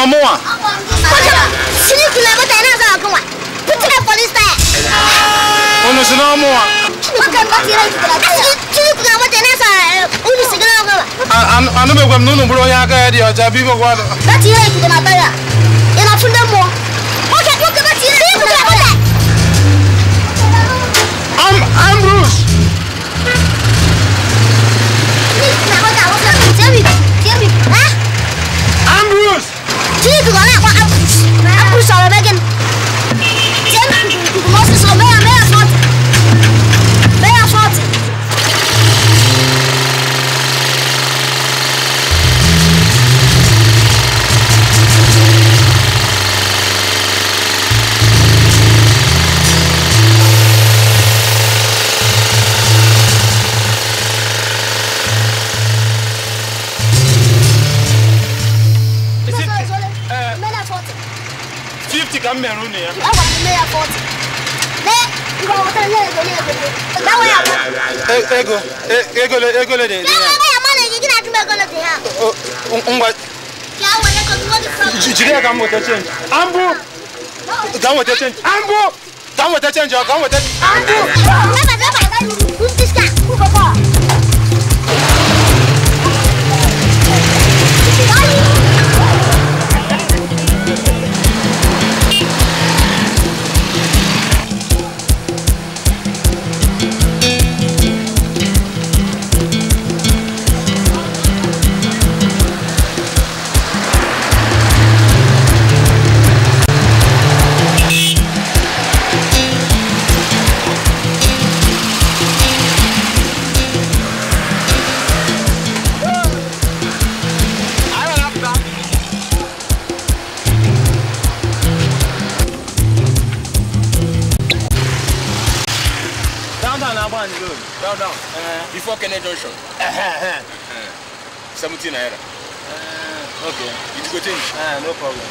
àwọn mú wọn. kọ́sọ́mọ̀ sílíkù náà bọ́tà iná sọ̀rọ̀ kan wà pútìlẹ̀ pọ́lísítà ẹ̀. ọ̀nà sì náà mú wọn. wọ́n bá ti rẹ̀ jùlọ sílíkù náà bọ́tà iná sọ̀rọ̀ ẹ̀ ọ̀nà sì náà kan wà. àánú bẹ̀ gbẹ̀m nínú búrọ̀ yá káyà di ọjà bí gbogbo àdó. bá ti rẹ̀ ìkùkù náà bẹ̀rẹ̀ ìnà fún dé mọ́. I'm I'm Bruce. Please, now that was not Dawa ya Ego, ego le, ego le de. Ya ba ya ma le gidi na tumbe ego le de ha. Ngwa. Ya wa le ko tuwo di from. Jide ka mo te change. Ambu. Dan wo te change. Ambu. Dan wo te change, dan wo te. Ambu. Baba, baba, baba. Who's this guy? no problem.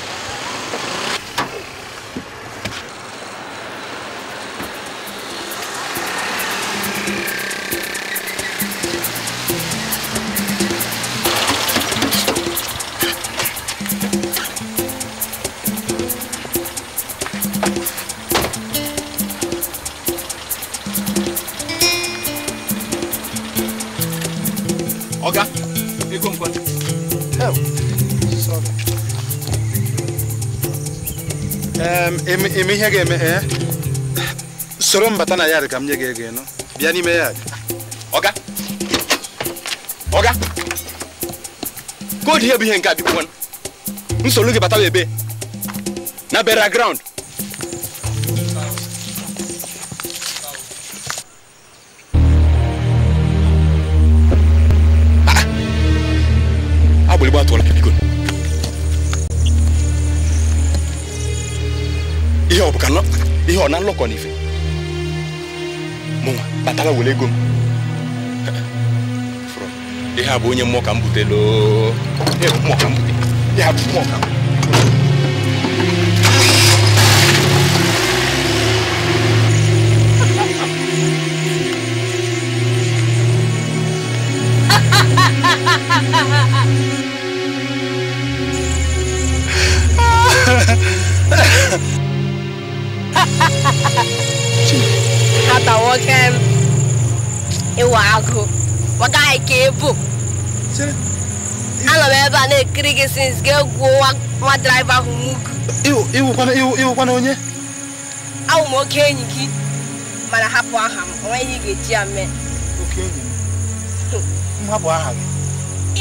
ihe ga-eme ee eh? soro mbata na yard ka m nye gị ego ịnụ bịa n'ime yard ọga ọga koodu ihe bụ ihe nke a bikwa nsogbu gị batawa ebe na bera ground ya bụ onye mmụọ ka m butelo ha bụ mmụọ ka bụ ịwa agụ ọ gaghị ka ebu anọ m ebe a na-ekiri gị since gị egwuo nwa draiva ahụ mugu iwụkwana onye awụ m oke enyi gị mana hapụ aha m onweghị ị ga-eji ya mee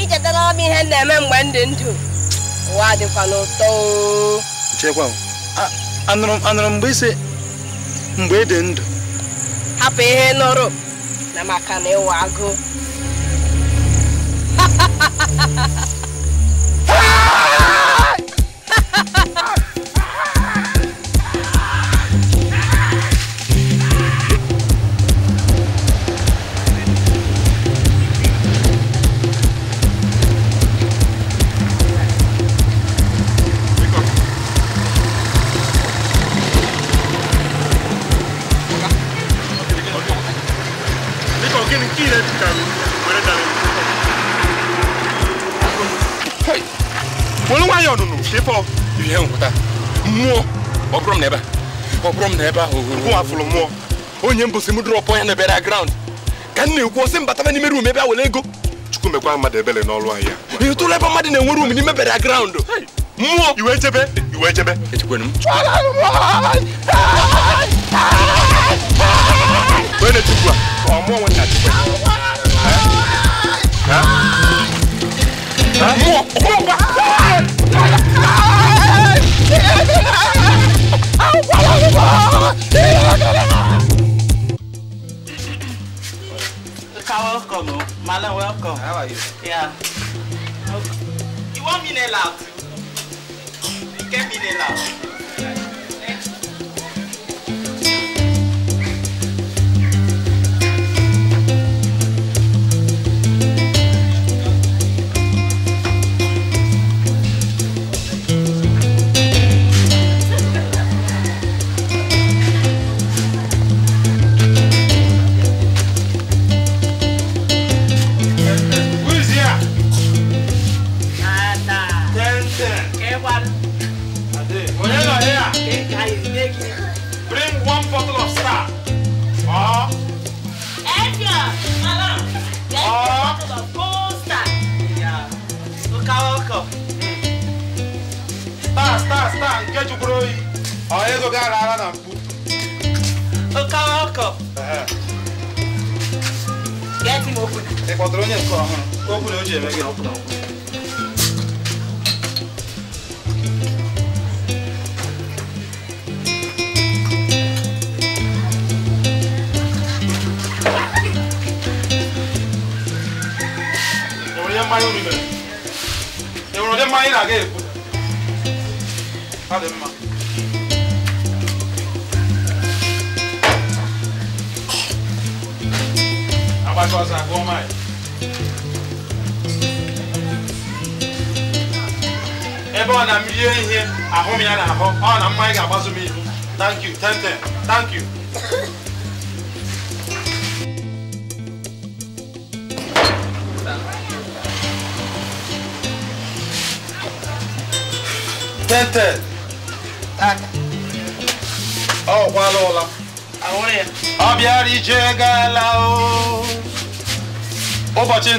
ichetara hmm. m ihe na-eme mgbe m dị ndụ ụwa dịkwa n'ụtọ anụrụ mgbe ise mgbe ị e dị ndụ hapụ ihe nụrụ na maka na ịwa agụụ ha ha ha chepọ ihe nwụta mmụọ ọ bụrụ m na ebe ọ bụrụ m na ebe ahụ bụ afụrụ mmụọ onye mbụsị m drọpụ ya na ebere graund ka m na-ekwu ọsị mbataba n'ime ruum ebe a were ego chukwu mekwa mmadụ ebele n'ọrụ ahịa ị ebe mmadụ na-enwe ruum n'ime bere graund mmụọ welcome, Malam, welcome. How are you? Yeah. You want me to loud? You get me loud.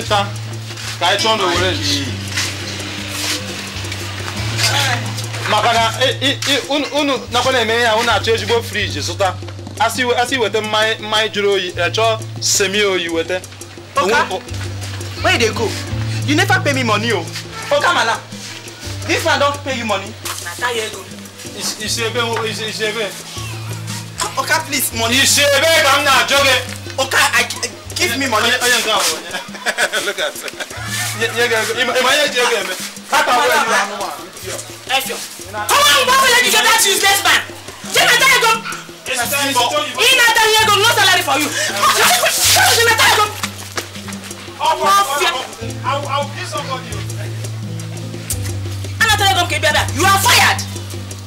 mẹ́ta ka anyị chọọ n'Owerri maka na unu nakwa na-eme ya unu achọ ezigbo friji zụta wete weta mmanya jụrụ oyi achọ e, semi oyi wete. oka where you dey go you never pay me money o oh. oka mala if i don pay you money na tie ego isi ebe isi ebe oka please money isi ebe ka m na-ajọ gị oka give me money onye nke ahụ Look at it. Imaya jege me. Papa where you are no Come on, Baba, let me get that useless man. Jonathan, go. Jonathan, go. No salary for you. Jonathan, go. Mafia. I'll I'll kill somebody. Jonathan, go. Kebebe, you are fired.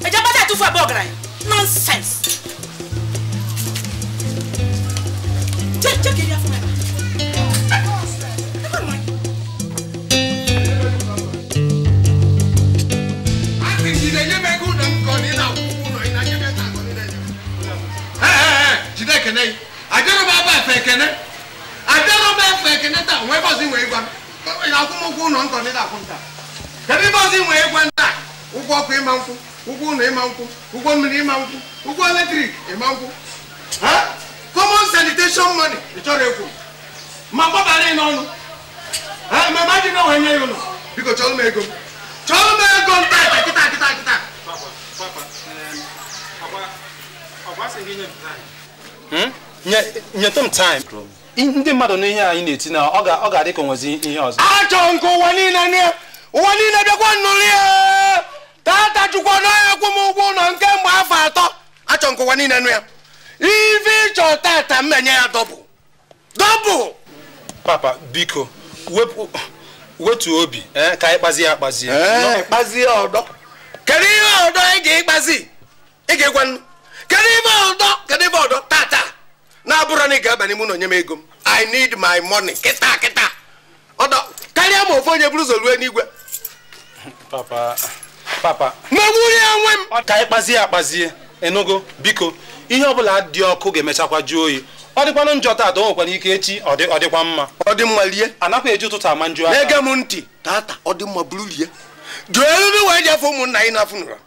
I Ejabata tu a bogra. Nonsense. Check check it out for me. kɛnɛ ye a dɔrɔn b'a b'a fɛ kɛnɛ a dɔrɔn b'a fɛ kɛnɛ ta wɛ bɔ si wɛyi gwan a ko mo k'u nɔ nkɔ ne t'a kun ta kabi bɔ si wɛyi gwan ta u kɔ ko e man kun u k'u nɔ e man kun u kɔ mini e man kun u kɔ lɛtiri e man kun hɛn common sanitation money ìtɔrɔ e kun ma bɔ ba ne nɔ nu hɛn mɛ maa ti n'o wɛ nye yi nɔ bi ko cɔlu ma e ta kita kita kita. papa papa ɛɛ ɔba ɔba segin ta ye. Hmm? nyetụ tom taịm ndị mmadụ na ihe anyị na-eti na ọ ga-adị ka onwezi ihe ọzọ achọ nke ụwa niile ụwa niile bịakwa nnụrụ ya tata chukwu naghị akwụ m ụgwọ ụlọ nke mgbe afọ atọ achọ nke ụwa niile nụ ya ife ịchọ tata m na ya dọbụ dọbụ papa biko wetu obi eh, ka anyị kpazie akpazie eh. kedu ihe ọdọ ị ga-ekpazi ị ga-egwa nnu kedu ibe ọdọ kedu ibe ọdọ tata na-abụrụ na ị ga-aba n'ime ụlọ nye m ego m i need my money kịta kịta ọdọ karịa ma ofu onye buru ụzọ ruo n'igwe papa papa megburie nwe m ka anyị kpazie akpazie enugo biko ihe ọbụla dị ọkụ ga-emechakwa jụọ oyi ọ dịkwanụ njọ taa o nwekwara ike echi ọ dịkwa mma ọ dị mma lie anakwa eji ụtụtụ ama njụ aka na-ege m ntị taata ọ dị mma buru lie jụọ eriri wee jefe ụmụnna anyị n'afọ nụra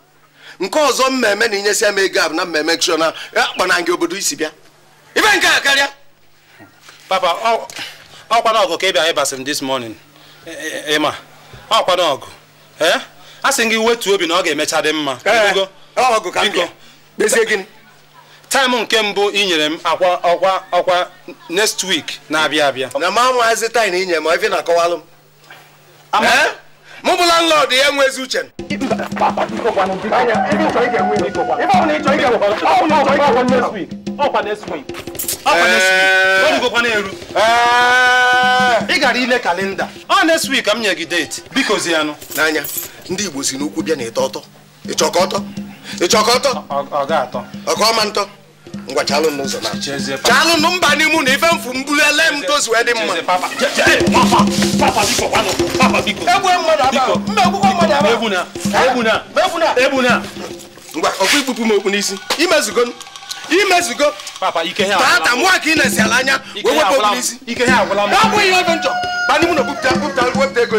nke ọzọ mmemme na inyesi ama ego abụ na mmemme chọna akpana ngị obodo isi bịa ibe nke a karịa papa ọkwa n'ọgụ ka ị ịbasị m this morning e, e, e, ịma ọkwa n'ọgụ a sị gị wetuo obi na ọ ga-emecha dị mma taịmụ nke mbụ ị nyere m akwa ọkwa ọkwa next week na-abịa abịa na ma maazị taị na inye m ife na akọwalụ m mụ bụ landlord ya nwezi uche ị gara ile kalenda ọ next week ka m nye gị date biko zianụ n'anya ndị Igbo si n'ukwu bịa na ịtọ ọtọ ịchọkọ ọtọ ịchọkọ ọtọ ọga atọ ọka ntọ ngwa chalụ n'ụzọ na chalụ nụ mba n'ime na ife mfu mbulu ele m tozu dị mma ngwa ọkụ ikpupu m okpu n'isi imezugo imezugo taata mụ ka ị na-esi ala anya wee wepụ okpu n'isi ọ bụghị ihe ọjọọ ba n'ime na okpupụta okpupụta wepụta ego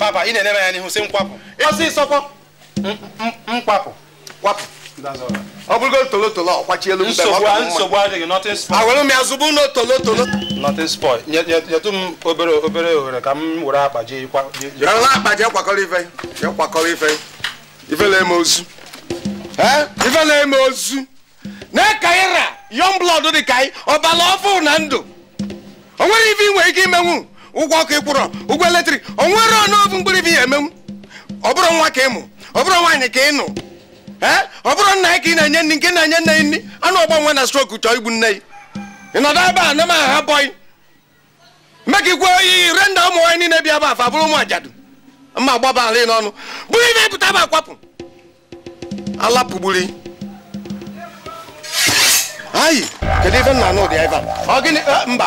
papa ị na-enye ya n'ihu si nkwapụ ọsịsọ nkwapụ kwapụ ọ bụrụgo tolotolo elu mbe nsogbu na tolotolo nothing spoil nyetụ m obere obere ohere ka m were akpa jee akpa kwakọrọ ife kwakọrọ ife ozu na ndụ o nwere ife nwere ike imenwu ụgwọ ọkụ ịkwụrọ ụgwọ eletrik o nwere ọnọbụ mgbịrịbi ya emenwu ọ bụrụ nwa ka ịmụ ọ bụrụ nwaanyị ka ịnụ ee ọ bụrụ nna ya ka ị na-enye nri nke na-enye nne ya nri anụ ọgba nwe na strok chọọ igbu nne ị nọdụ ebe a nema aha bọyị mek ikwe oyi re nda ụmụ nwaanyị niile bịa ba afa bụrụ ụmụ ajadu mma gbaba ala n'ọnụ bụrụ ibe pụta ba akwapụ ala ayi kedu ife anụ ebe a ọ gịnị mba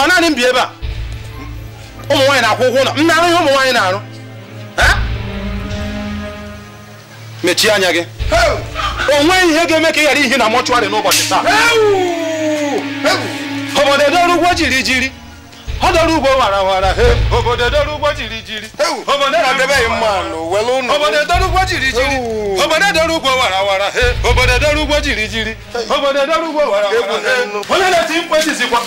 ọ naanị m bi ebe a ụmụ nwaanyị na-akwụ ụgwọ ụlọ m na-arụ ihe ụmụ nwaanyị na-arụ mechie anya gị o nweghị ihe ga-eme ka ị ghara ihe na mọchụarị n'ụbọchị taa obodo ọrụ ụgwọ jiri jiri ọdọrúgbó warawara òbòdè dọrúgbó jìrìjìrì òbòdè dọrúgbó warawara òbòdè dọrúgbó jìrìjìrì òbòdè dọrúgbó warawara òbòdè dọrúgbó jìrìjìrì òbòdè dọrúgbó warawara. olóòlù ti ń pèsè sí wọn.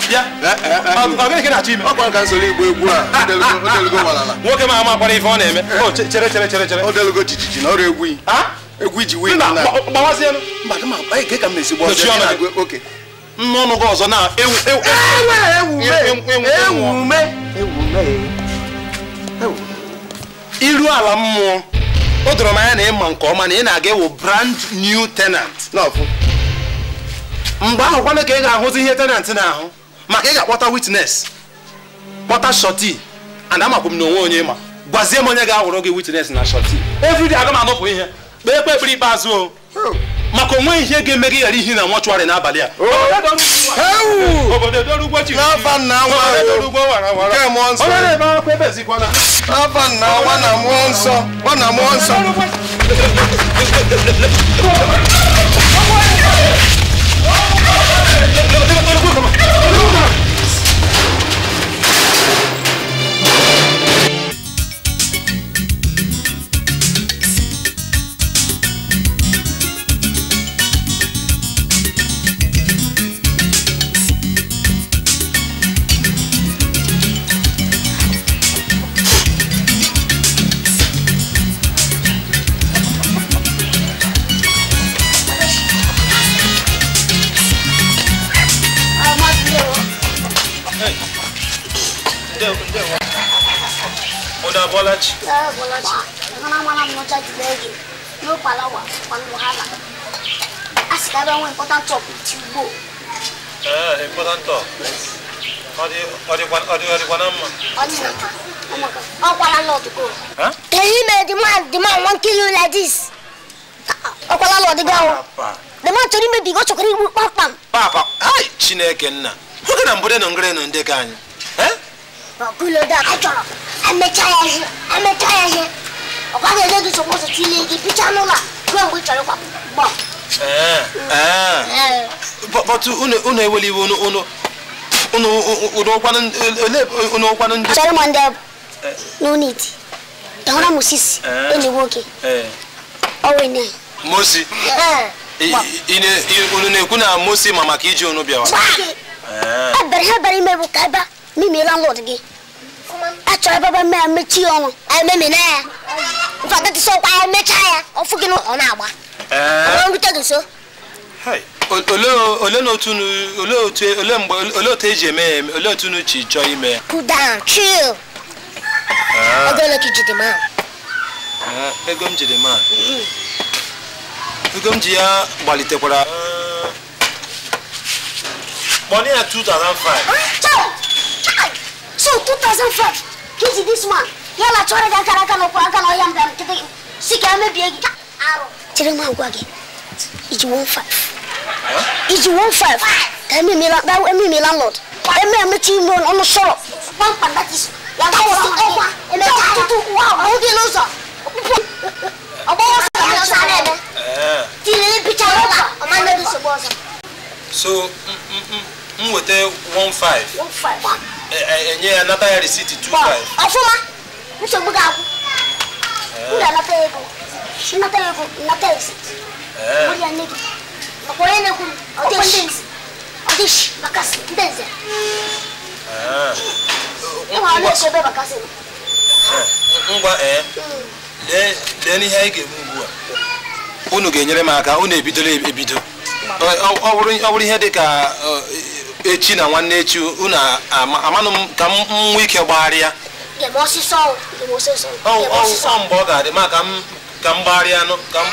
ọbẹ̀ kí ni àti mi. ọkùnrin kan sọ̀rọ̀ ìgbó egwu a ọdẹlugo wàràlà. nwoke máa máa kpọrọ ife ọ na-eme. chere chere chere chere. ọdẹlugo jìjìjì na ọrụ egwu yi. egwu iji wee nna. gbawa sí ẹnu. mmadụ ma gbaghị ka e ka m na-esi gbọọ. nne gị ọzọ na iru ala mmụọ o doro m anya na ịma nke ọma na ị na-aga ewu brand new tenant mgbe ahụ kwana ka ị ga-ahụzi ihe tenant na-ahụ maka ị ga-akpọta witness kpọta shọti ana amakwa m na onwe onye ma gwazie m onye ga-ahụrụ gị witnes na shọti everyday aga m anọpụ ihe kpee kpe ekpere ikpeazụ o oh. maka onweghị ihe ga-eme gị ghara ihi na mọchụarị n'abalị a na nsọ na nsọ Saya bola cik. Mana mana macam tu lagi. Yo palawa, palawa. Asyik ada orang important talk with you. Eh, important talk. Adi, adi, adi, adi, panam. Adi, oh my god. Oh, panam lot go. Huh? Tell me, the man, the man won't kill you like this. Oh, panam lot go. The man told me because you can't work Papa, ay, Chineke na. Huwag na mbode ng ngre ng dekanyo. O da, Ọ̀gúnlódà kẹjọ ẹ̀mẹtayẹsẹ ẹ̀mẹtayẹsẹ ọ̀gbádẹ́gbẹ́ tó sọ pọ̀sọ̀ tún lé igi pítsá nọ́là gbọ́n gbé tsọ̀rọ̀ papọ̀ gbọ́. bọ́tú unu eweli iwe unu unu unu unu ụkwanụ ole unu ụkwanụ ndị. Chere mọ ndị ọ bụ n'unit dọwara musisi enyi nwoke o enyi anyị. Mosi unu na-ekwu na Mosi ma maka iji unu bịawa. Ebere ha bere ime bụ ka ebe a mimira lord gi akyerɛ bɛbɛ mɛ a mɛkyi yɛ no ɛmɛmi nɛ ya nfa tete sɛ ɔkɔ ayɛ mɛkya ya ɔfo gi no ɔno aba ɔno bi tɛgi so. ole n'otunu ole otu ole mgbe ole otu eji eme ya ole otunu chi chọọ ime ya. cool down chill. ego ole ka ijide ma. ego m jide ma. ego m ji ya gbalitekwara. money at two thousand five. So 2005, kids this man? one. Yala chore da kara kana kwa kana yam dam tete. Sika me biegi ka aro. Tire ma gwage. Iji 15. Iji 15. Emi mi la da emi mi landlord. Emi mi ti mo on solo. One pan that is. Ya ka wa kwa. Emi ta tu tu wa. Mo di lo so. Obo wa sa na sa na be. Eh. Ti le picture wa. O ma na di so bo so. So, mm mm mm. Mo te 15. 15. enye ya nata ya risiti 25 ọfụma nsogbu ga-akwụ m eh. ga-anata ego nnata ego nnata risiti eh. bụrụ ya nne gị makwa onye na-ekwu ndenze ọdịshi ọdịshi bakasị ndị nze ịhụ ọnụ esi ebe bakasị eh, ngwa ee lee n'ihe anyị ga-eme ugbu a unu ga-enyere m aka unu ebidole ebido ọ bụrụ ihe dị ka echi na nwanne echi unu amanụ m ka m nwee ike gbagharịa ọsịsọ mgbe ọ ga-adị ma ka m gbagharịa ka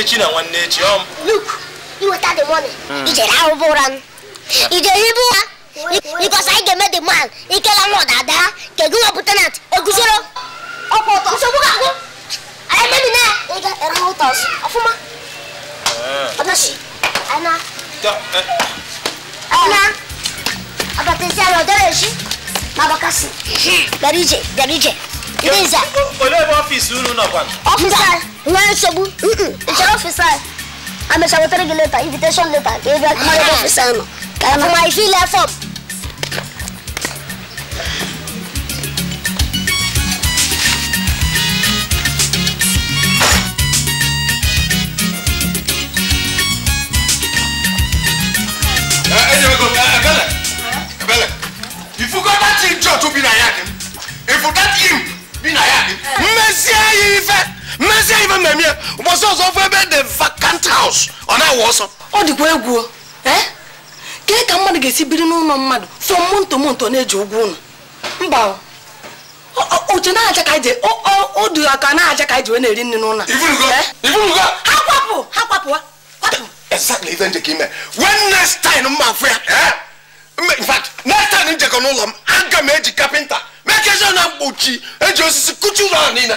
echi na nwanne echi hmm. because anyị ga-eme the man ikela nwa dada kedu eguzoro nsogbu ga-agụ anyị ere ụtọ ọfụma Odnosi. Eh. Ana. To, e. Eh. Ana. Abatenziano, odeleży. Ma wakasy. Darije, darije. Idenza. Olebo ọ́fíìsì unu nọ kwan. Ọ́fíìsì. não nsogbu. Nchere ọ́fíìsì anyị. Amecha wetara gị leta, invitation leta, ka ị bịa kuma ebe ọ́fíìsì anyị nọ. Ka ma ifi ile fọm. ọkụ bi na ya dị m bi na ya dị m mmezie ya ife mmezie ya ife mmemme ya ụbọchị ọzọ ebe dị vacant house ọ na-awụ ọsọ ọ dịkwa egwu kee ka mmadụ ga-esi biri n'ụlọ mmadụ fọ monto monto na-eji ụgwọ ụlọ mba otu na-acha ka anyị odu aka na ka wee na-eri nri n'ụlọ ha kwapụ ha kwapụ kwapụ mma afọ ya in fact next time njekọ n'ụlọ m aga m eji kapịnta mekezi na mkpuchi eji osisi kụchi ụlọ ahụ niile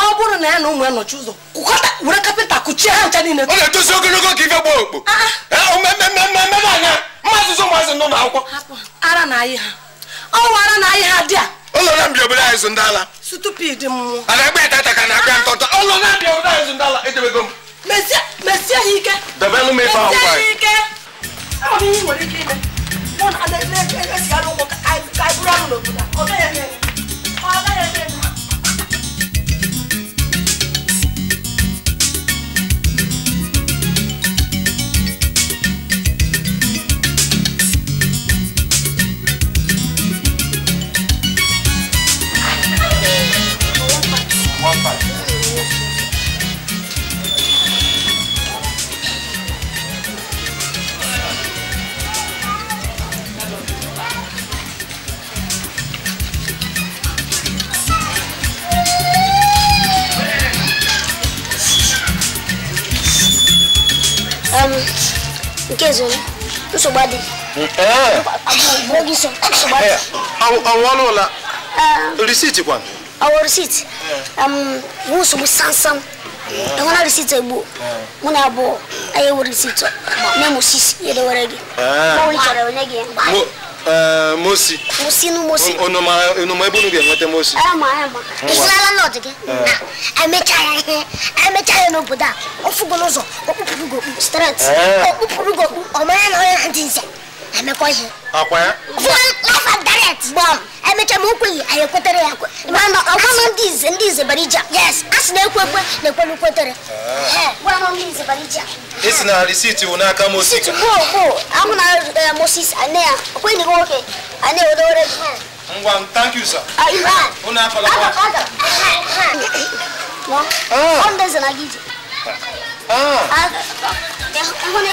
ọ bụrụ na ya na ụmụ ya nọchi ụzọ kụkọta were kapịnta kụchie ha ncha niile ọ na-etozi ogologo ka ife gbaa okpo omemememememe anya mmazụzụ ụmụazị nọ akwụkwọ. ara na ayị ha ọnwa oh, ara na ayị ha dị a ụlọ na mbịa obodo anyị zụ ndala. ala stupid mmụọ a na-agba ya tata ka na-agba ntọntọ ụlọ na obodo anyị zụ ndị edebego m mesie ha ike debelụ m ife ahụ ọ bụ ihe nwere ike ime mụ na ndị esi arụ ụmụ ka anyị bụrụ anụ n'obodo a ọ gaghị eme um, nke zoni nsogbu adị abụghị so nsogbu adị ọnwụ ọnụ ụla risiti kwa ọwụ risiti bụ nsogbu sansam ịhụna risiti egbuo mụ na abụọ anyị ewu risiti na-emụsisi edewere gị mgbe ọ chọrọ onye gị mgbe Eh, mosi mosi nu ebe unu ga-enweta mosi ama ama na emecha ya n'obodo a ofugo n'ụzọ okpupụrụ gị stret ọ na onye na ndị emekọ ihe life and yes a moses moses thank you sir ah, unu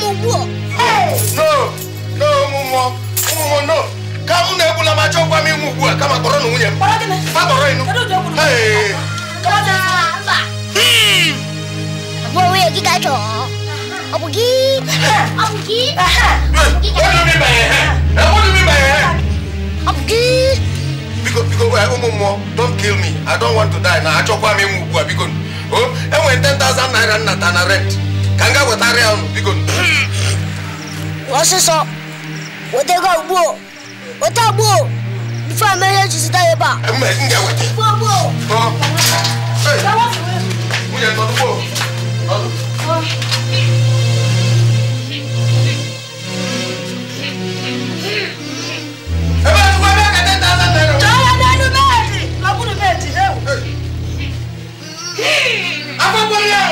ọmụ. no ụmụmụọ ụmụmụọ no ka m na-egbula ma chọkwa m ịnwụ ugbu a kama kpọrọ na nwunye m kpọrọ ịnụ onye gị ka gị ọ bụ gị biko ụmụ mmụọ don kill me i don't want to die na achọkwa m ịnwụ ugbu a biko enwere 10,000 naira nnata na rent ka m gaa wetarịa unu biko ọsịsọ wetego ugbuo weta gbuo bifo ama ihe ji zụta ebe a Hey! Akwụkwọ ya!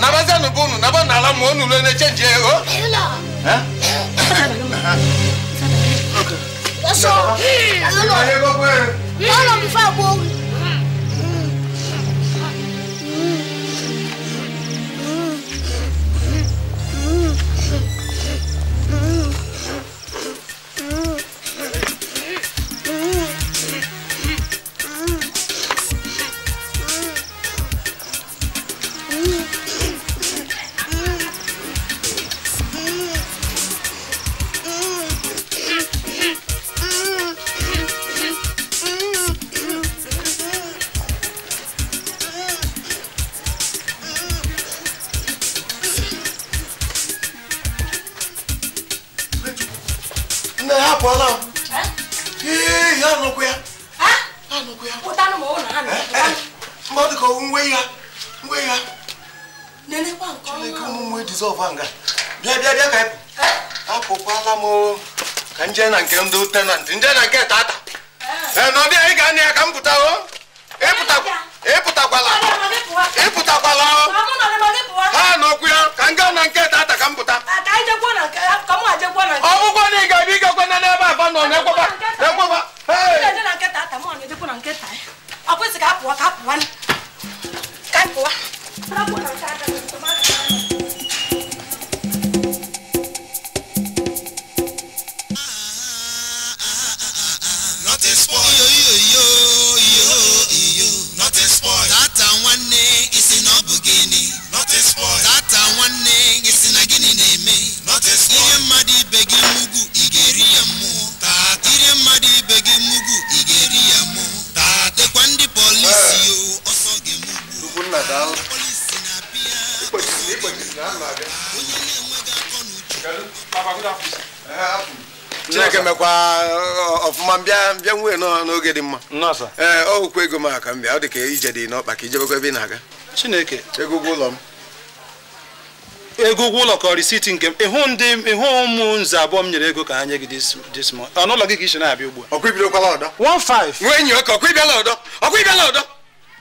nabaza nubunu naba nala monu lwe ne chenje o ela eh Sọ, ẹ lọ lọ. Ẹ lọ daalụ chineke mekwa ọfụma mbịa mbịa nwee n'oge dị mma ee ọ hụkwa ego m aka m bịa ọ dị ije dị n'ọkpa ka ijebekwa ebe ị na-aga chineke ego ụlọ m ego ụlọ ka risiti nke m ịhụ ndị ịhụ ụmụ nze abụọ m nyere ego ka ha nye gị dis month ọnụ gị ka isi na-abịa ugbu a ọkụ ibidokwala ọdọ 15 nwee enyi ọkụ ọkụ ịbịala ọdọ ọkụ ịbịala ọdọ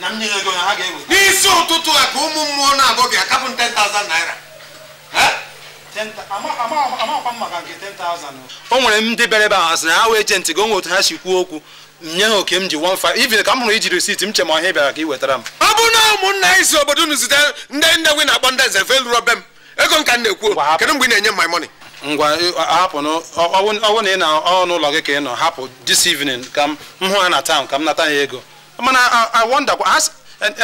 na ego ha ga-ewe. n'isi ụtụtụ a ka ụmụ mmụọ na-abụ gị akapụ 10,000 naira o nwere m ndị bịara ebe ahụ asị na ha wee jenti gị onwe otu ha si kwuo okwu nye ha oke m ji 15 ibi ka m hụrụ iji risiti m che ma ọhịa bịara ka ị wetara m ọ bụrụ na ụmụnna anyị si obodo unu zite ndị nne gị na-akpọ ndị eze nze felụrụ be m ego nka m na-ekwu kedu mgbe ị na-enye my money ngwa hapụ bụ na ị na ọnụ ụlọ gị ka ị nọ hapụ this evening ka m hụ ha na taụn ka m nata ya ego mana i awọndakwa asị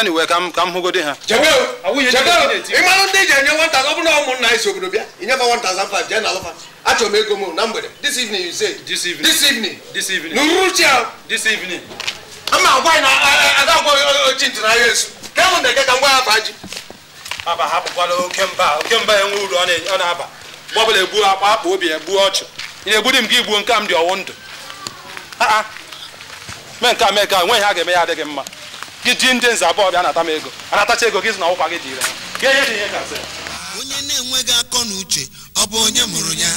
anyway ka m ka m hụgodi ha ịmanụ ndị ji enye nwata ọ bụrụ na ụmụnna anyị si obodo bịa inyefa 1005 jee na alụfa achọrọ m ego m na mgbede this evening you say this evening this evening this evening n'uruchi ahụ this evening ama agwa na aga agwa ochi ntị na yesu ka mụ ndeke ka m ya afa ji aba hapụkwala oke mba oke mba enwe uru ọ na-aba mgbe ọbụla egbuo akpa akpa obi ya ọchụ ị na-egbudi m gị gbuo nke m dị ọwụ ndụ ah, ah. mee nke a mee ka nweghị ha ga-eme ya adịghị mma gị ji ndị nze abụọ bịa anata m ego anatacha ego gị na ọkwa gị ihe dị ihe ire onye na-enweghị akọ na uche ọ bụ onye mụrụ ya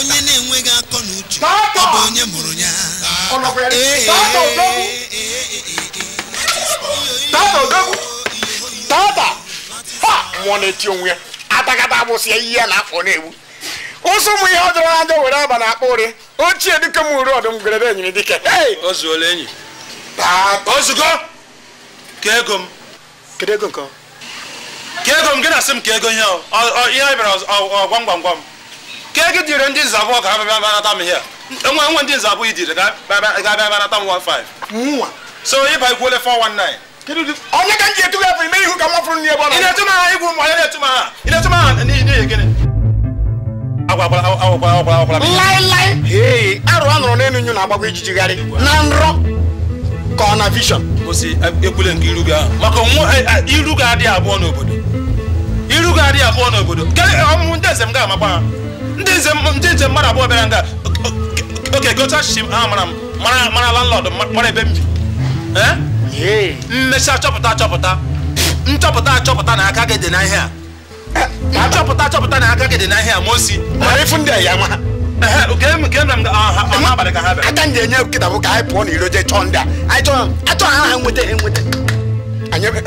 onye na-enweghị akọ na uche ọ bụ onye mụrụ ya Mụọ na-eti onwe ya Atakata abụsị ya ihe na afọ na-egbu ụsụ ụmụ ihe ọ jọrọ na njọ were aba na akpa ụrị ochie dịka m uru ọdụm gwerere enyi dike o zuola enyi ozugo ka m kedu nke ka m gị na-asị m ka ego ihe ihe bịara ọgwam gwam gwam ka ego dịrị ndị nza abụọ ga bịa banata m ihe enwe enwe ndị nza abụọ idiri ga bịa banata m 15 nwa so ịba ikwuole 419 onye ka m ji etu gafere ime ihu ka m wafuru n'ihe bụ na-etu m ha igwu m onye na-etu m ha ị na-etu m ha n'ihi gịnị laịlaị arụ a nụrụ n'elu nyu na-agbakwa ijijigharị na nrọ ka ọ na e, ekwule nke iru ahụ maka e, e, iru ga-adị abụọ n'obodo iru ga-adị abụọ n'obodo ọmụmụ ndị nze m ga-amakwa ha ndị nze mmadụ abụọ bịara nga oke gocha chichi ha mara mara landlọd mara ebe m bi achọpụta achọpụta nchọpụta achọpụta na aka gị dị ihe a achọpụta achọpụta na aka gị dị n'ahịa mosi osi mara ndị ya ma ka ha aka ndị enye kịta bụ ka anyị pụọ na iro jee chọọ ndị a achọ ha ha nweta nweta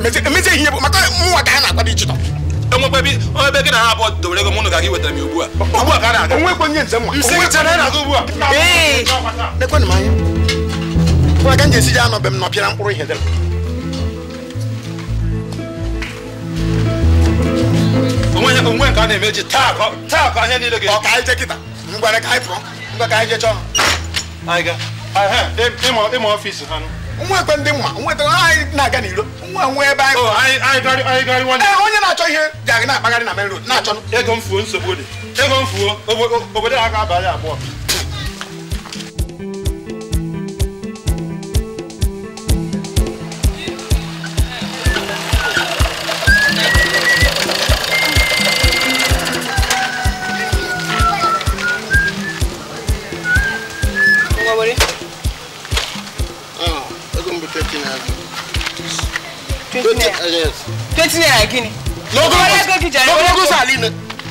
e, emezi ihe bụ maka nwa ka ha na e gị na ha abụọ mụnụ ga gị wetara m ugbu a ugbu a ka a na-aga onwekwe nye njem na a lekwenụ m anya m ji esi ji anọ be m nọpịara mkpụrụ ihe onwe nke a na-emeji taa ka ihe niile ga-ọ ka anyị kịta ngwere ka anyị pụọ ngwa ka anyị jee chọọ ha ịma ọfịs ha nwa ekwe ndị mma nweta anyị na-aga n'iro nwa nwe ebe anyị onye na-achọ ihe ji na-akpagharị na main road na-achọ ego mfuo nsogbu dị ego mfuo obodo ha ga-abalị abụọ twenty naira twenty naira kí ni. lọ́gọ́gùsà lọ́gọ́gùsà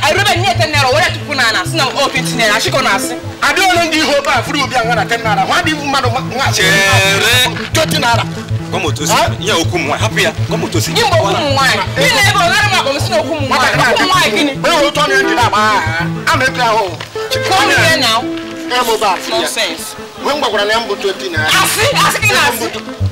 arịba nye ten naira tupu na na ọ na asị adị ole ndị ihe a furu obi a na ten naira nwa dị mmadụ nwa chere twenty naira okwu m nwaanyị hapụ ya gị mgbe okwu m nwaanyị a na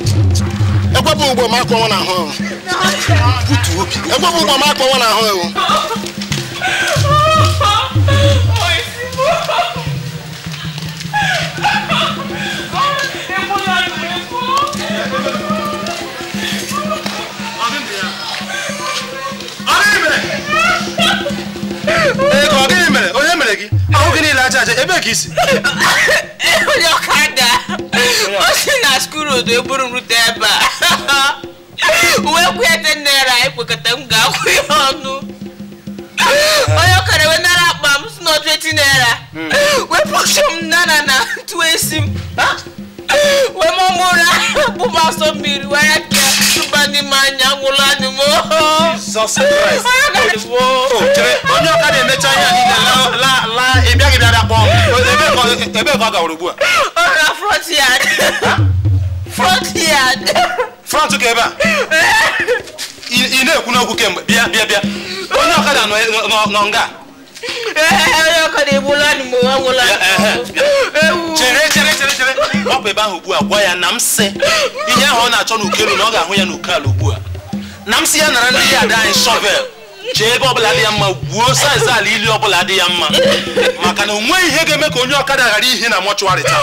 ekwepụ ụgbọ ma akpọnwụ na ahụ ekwepụ ụgbọ ma akpọnwụ na ahụ ewu oh, gị ahụghị niile aja aja ebe ka isi onye ọkada o si na skurudu eburu m rute ebe a uwe kwete naira anyị kwekọta m ga-akwụ ya ọnụ onye ọkara wee nara akpa m si na 20 naira wepụcha m nana na ntụ esi m wee mụmụra bụ m asọ mmiri wee ni ma nyangula ni mo. Jesus Christ. Ojere onye ọka na-emecha ihe niile la la la ị bịaghị bịara kpọọ m ebe ka ọ ugbu a. Ọ ga front yard. Front yard. Front ka ebe a. Ị na-ekwu n'okwu kemgbe bịa bịa bịa onye ọkada nọ nga. chere chere chere chere ọ bụ ebe ahụ ugbu a gwa ya na ihe ahụ ọ na-achọ n'ukelu na ọ ga-ahụ ya n'uke ala ugbu a na m sị ya nara ndị ada anyị shọvel chee ebe ọbụla dị ya mma gwuo saiz ala ili ọbụla dị ya mma maka na o nweghị ihe ga-eme ka onye ọkada ghara ihe na mọchụarị taa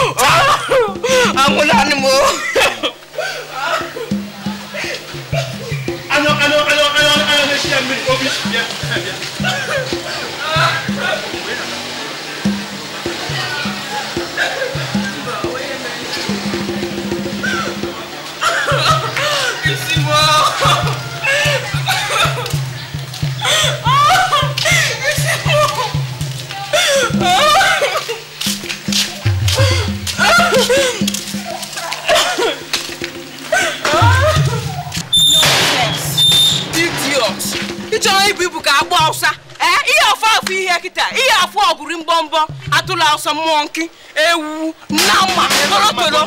ịchọrọ ibu ibu ka agba ọsa ihe ọfọ afọ ihe kịta ihe afọ ọgụrụ mbọmbọ atụla ọsọ mmụọ nkị ewu nama torotoro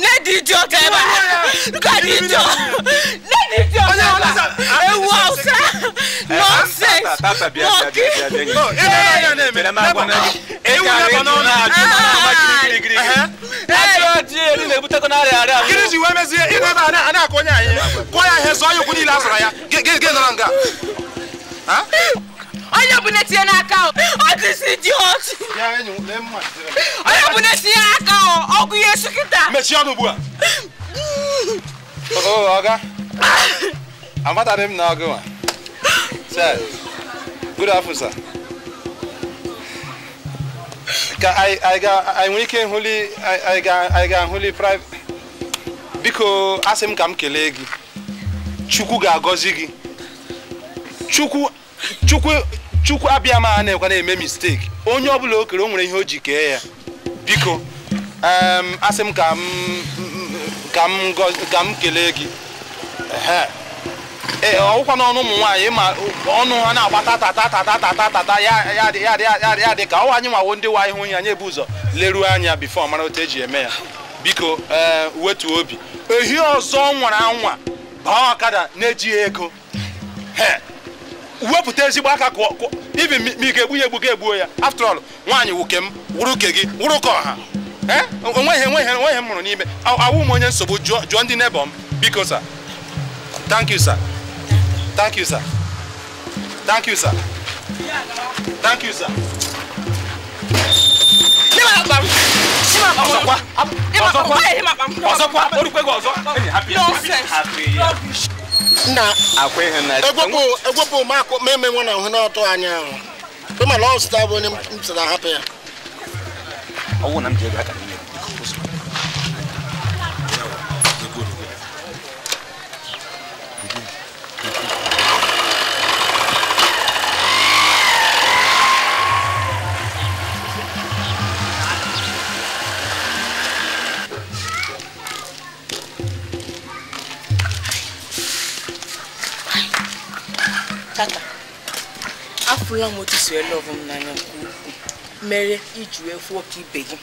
na-edi iji ọka ebe a ewu ọsa nọnsens olu le bute ko n'ale ale amu. kirisi wɛn onye bụ netinye n'aka n'aka ọgwụ ihe esu mechie ọnụ ugbu a ọga amataghị m na ọgụ nwa good afternoon sir ka anyị nwere ike ịhụli anyị ga-ahụli biko asị m ka m kelee gị chukwu ga-agọzi gị chukwu chukwu chukwu abịa m na-ekwa na-eme mistake onye ọbụla o kere o nwere ihe o ji kee ya biko um, asị m ka m ka m kelee gị Eh, ọwụkwa n'ọnụ ụmụ nwaanyị ma ọnụ ha na-agbata tata tata tata tata ya dị ka ọwa anyị nwawo ndị nwaanyị hụ ya anyị ebu ụzọ leruo anya bifo mara otu eji eme ya biko eh, wetu obi ehi ọzọ nwara anwa baa ọkada na-ejighị ego wepụta ezigbo aka ibi ma ike egbu ya egbu ga egbuo ya after all nwaanyị wuke m wụrụ uke gị wụrụ ka ọha eh, onweghị enweghị enweghị m mụrụ n'ime awụ m onye nsogbu jụọ ndị nebọ m biko sa thank you sir Thank you, sir. Thank you, sir. Thank you, sir. na ahụ bụ onye ya Afụla m otu si ele ọvụ m n'anya mere iji wee fụ ọka ibe gị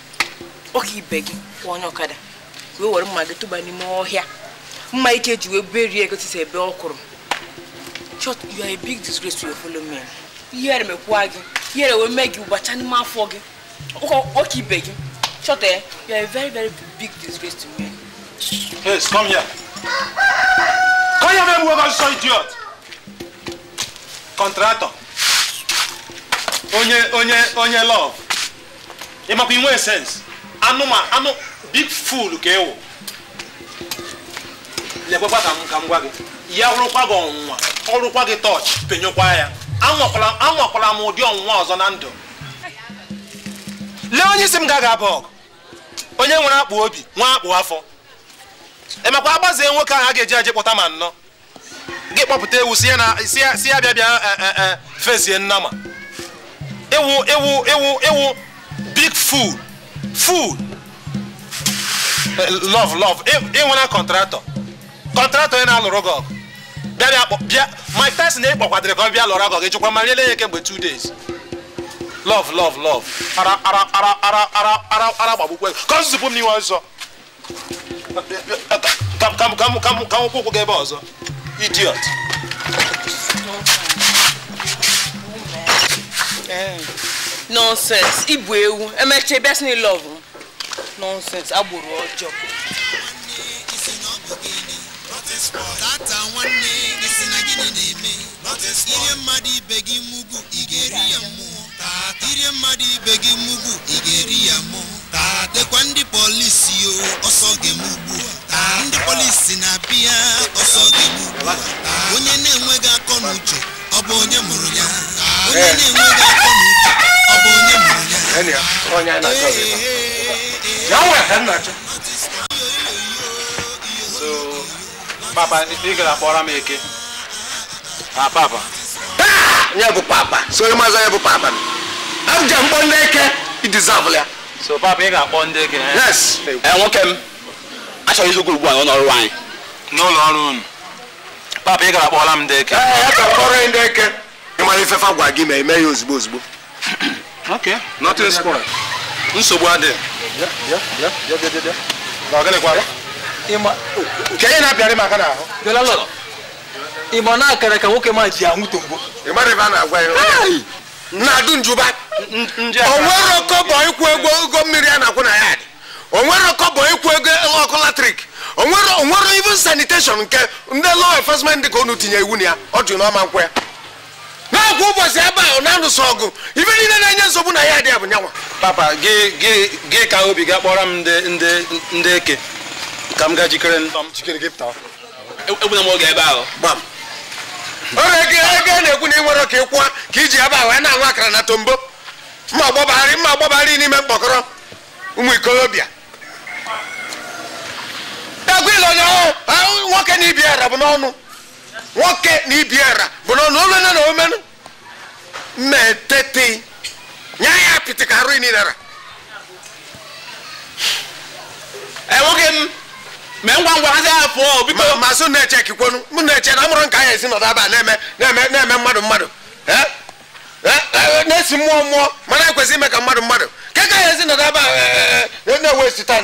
ọka ibe gị kwụọ onye ọkada wee were mma gị tụba n'ime ọhịa mma ike ji wee berie egotisi ebe ọ kwụrụ chọt you are a big disgrace to your fellow men ihere mekwua gị ihere wee mee gị ụbacha n'ime afọ gị ọka ibe gị chọta ya you are a very very big disgrace to men yes come here come here man whoever saw idiot contractor onye onye onye love ịmakwa inwe sense anụma anụ big fool ka ịwụ lekwekwa ka m ka m gwa gị ya rụkwa gị ọnwụnwa ọrụkwa gị tọọchị penyekwa ya anwakwala m ụdị ọnwụnwa ọzọ na ndụ lee onye isi m gaga abụ onye nwere akpụ obi nwa akpụ afọ emekwa agbazie nwoke ahụ a ga-eji eje kpọta ma nnọ gị kpọpụta ewu si ya bịa bịa eh, eh, eh, fezie nnama ewu ewu ewu ịwụ big food fool love love ịnwena kọntraktọ kọntraktọ ị na-alụrụ gị ọgụ bịa bịa Mike Tyson ekpọkwadịrị ka ọ bịa lụrụ ọgụ gị chụkwa ma riele ya kemgbe 2 days love love love ara ara ara ara ara ara ara gbagbukwe ka ọ zụpụ m n'iwe ọzọ gị ebe ọzọ idiot Eh. nonsense ịbụ ewu agbụrụ ọjọọ ihe mmadụ ibe gị mugbu ị ga-eri ya mmụọ ire mmadụ ibe gị mugbu ị ga-eri ya mmụọ dekwa ndị polisi o ọsọ ndị polisi na-abịa ọsọ ga onye na-enweghị akọ na ọ bụ onye mụrụ ya onye eh. na-enweghị afọ na uche ọ bụ onye mụrụ ya papa ị gara kpọrọ m eke na papa ah! ya bụ papa sori maza ya bụ papa m abụja mkpọ ndị eke idizabụl ya so papa ị ga-akpọ ndị eke ee, eh? eh, nwoke m achọghị ịzụ ugwu ugbu a n'ụlọ ọrụ anyị n'ụlọ ọrụ unu papa ị gara m ndị eke eh, eh, kpọrọ ndị gị ma eme ya ozugbo ozugbo nsogbu adịghị nke ihe na akara ka nwoke ma ji anwụ na onwere ọkọbọ ịkwụ ego mmiri a na-akwụ na ya dị onwere ịkwụ ego ọkụ latrik onwere even sanitation nke ndị law enforcement dị ka unu tinye iwu na ya ọ jụ n'ọma nkwe na-akwụ ụbọchị ebe ahụ na-alụso ọgụ ibe niile na-enye nsogbu na ya adị ya bụ nyanwa papa gị gị gị ka obi ga kpọrọ m ndị ndị ndị eke ka m gaa jikere e, e, egbuna m oge ebe ahụ oge ego ego na-ekwu na ị nwere ka ị ka iji ebe ahụ na-anwụ akara na tombo mma agbabagharị mma agbabagharị n'ime mkpọkọrọ ụmụ ikolobịa daguil ụnyaahụ nwoke na ibiara ara bụ n'ọnụ nwoke na ibi ara bụ n'ọnụ olene na omenụ mmetete nya ya apịtị ka arụ inara enweghị m mee ngwa ngwa hazi ya pụọ biko ma sụ na-eche kikwonu m na-eche na nka ya esi nọdụ na-eme mmadụ mmadụ na-esi mmụọ mmụọ mana ekwesị ime ka mmadụ mmadụ ke ka ya ezi nọdụ aba na esi taa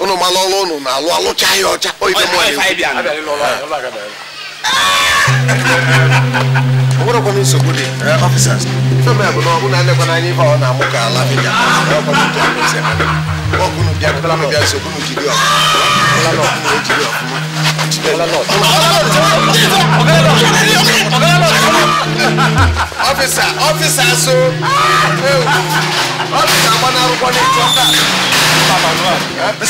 unu ma lọlụ unu na alụ alụcha ya ọcha oyibe mụ onwere kwana nsogbu dị ọfisas eh, fem bụ na ọbụ na anekwana anya ihe ọ na-amụ ka ala bịa ọgụnụ bịa bịa nsogbu na jiri ọfụma jiri ọfụma ọfisa ọfisa so ọfisa agbana arúgbó ní ìjọ ká.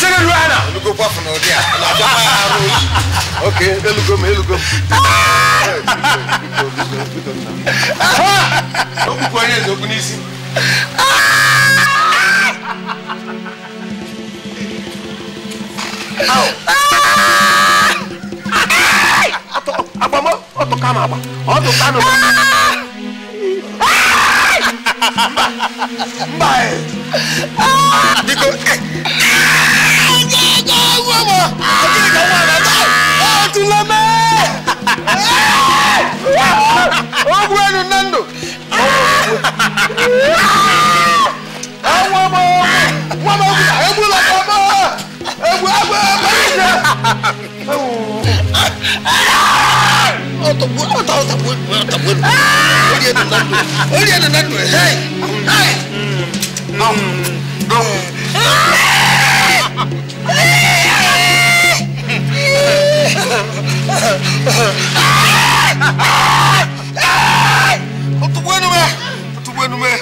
Sẹ́ni lu àná. Elugo pọ́ọ̀fù náà di à. Àjọ máa ń arú. Ok, elugo mi, elugo mi. Okùnkùn ẹni ẹ̀sọ́ kún n'isi. Ah! Oh. kpata m agba ọ dụ kpata m mba mba biko tuleme eh. ogwu enu nne ndụ nwa m nwa m egbula m egbu egbu egbu egbu Otto buat, Otto tak buat, tak buat. Oh dia nak nandu, oh dia nak nandu. Hey, hey, nom, nom. Otto buat nume, Otto buat nume.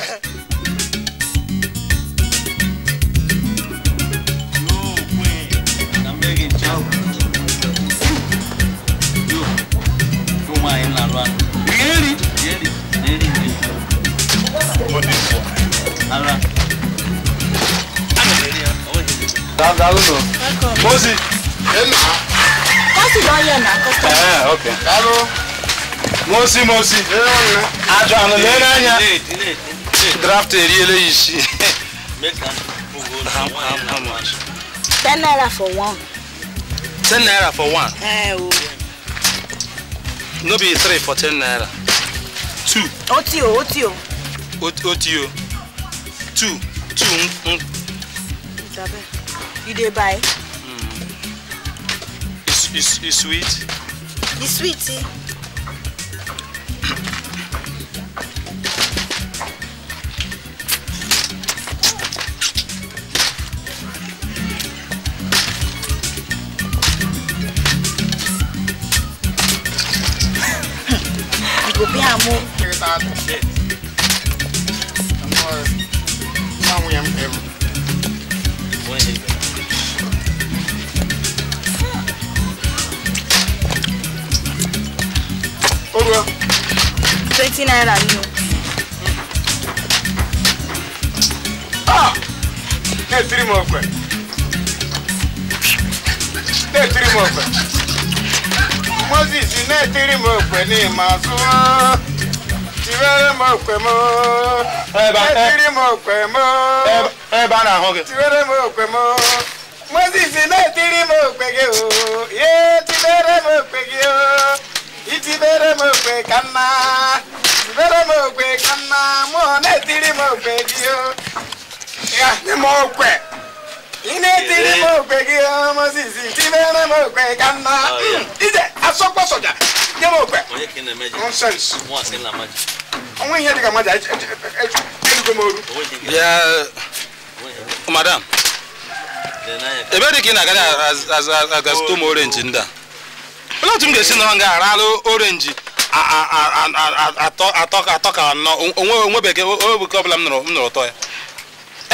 Mọ́sí. Mọ́sí lọ yẹ̀ náà kọ́kọ́. Ẹ̀ẹ́ ok. Dáró. Mọ́sí Mọ́sí. Àjọ àná lé n'anya. Draft eri eléyìí sí. Ten naira for one. Ten eh, naira for one? Oh. Ẹ o. No be three for ten naira two. ó tí o ó tí o. ó tí o two two ń. ìjàbẹ́ you dey buy. Mm. is is sweet. the sweet. Eh? go pay am side and shit. I'm more somewhere ever. Oh well. Twenty nine I knew. Ah! Hey, three more quick. Hey, three more quick. Moses, you three more quick. Name my son tiwere mo pe mo etiri mo pe mo tiwere mo pe mo mo sì sí n'etiri mo pege o ye tiwere mo pege o itibere mo pe kanna tiwere mo pe kanna mo n'etiri mo pege o ya ni mo pe ilé tí ní mọ̀ pé kí ọmọ sì sí tí bẹ́ẹ̀ mọ̀ pé ká ná ìjẹ́ asọ́pọ̀sọ̀jà ní mọ̀ pé nonsense àwọn èèyàn ti ka májà ẹ dùgbò mọ olú. madam ebe dị ka ị na-aga agazito m orenji ndị a olee otu m ga-esi nọrọ nga aralụ orenji atọ ka anọ onwebeghị ọbụla m nụrụ ụtọ ya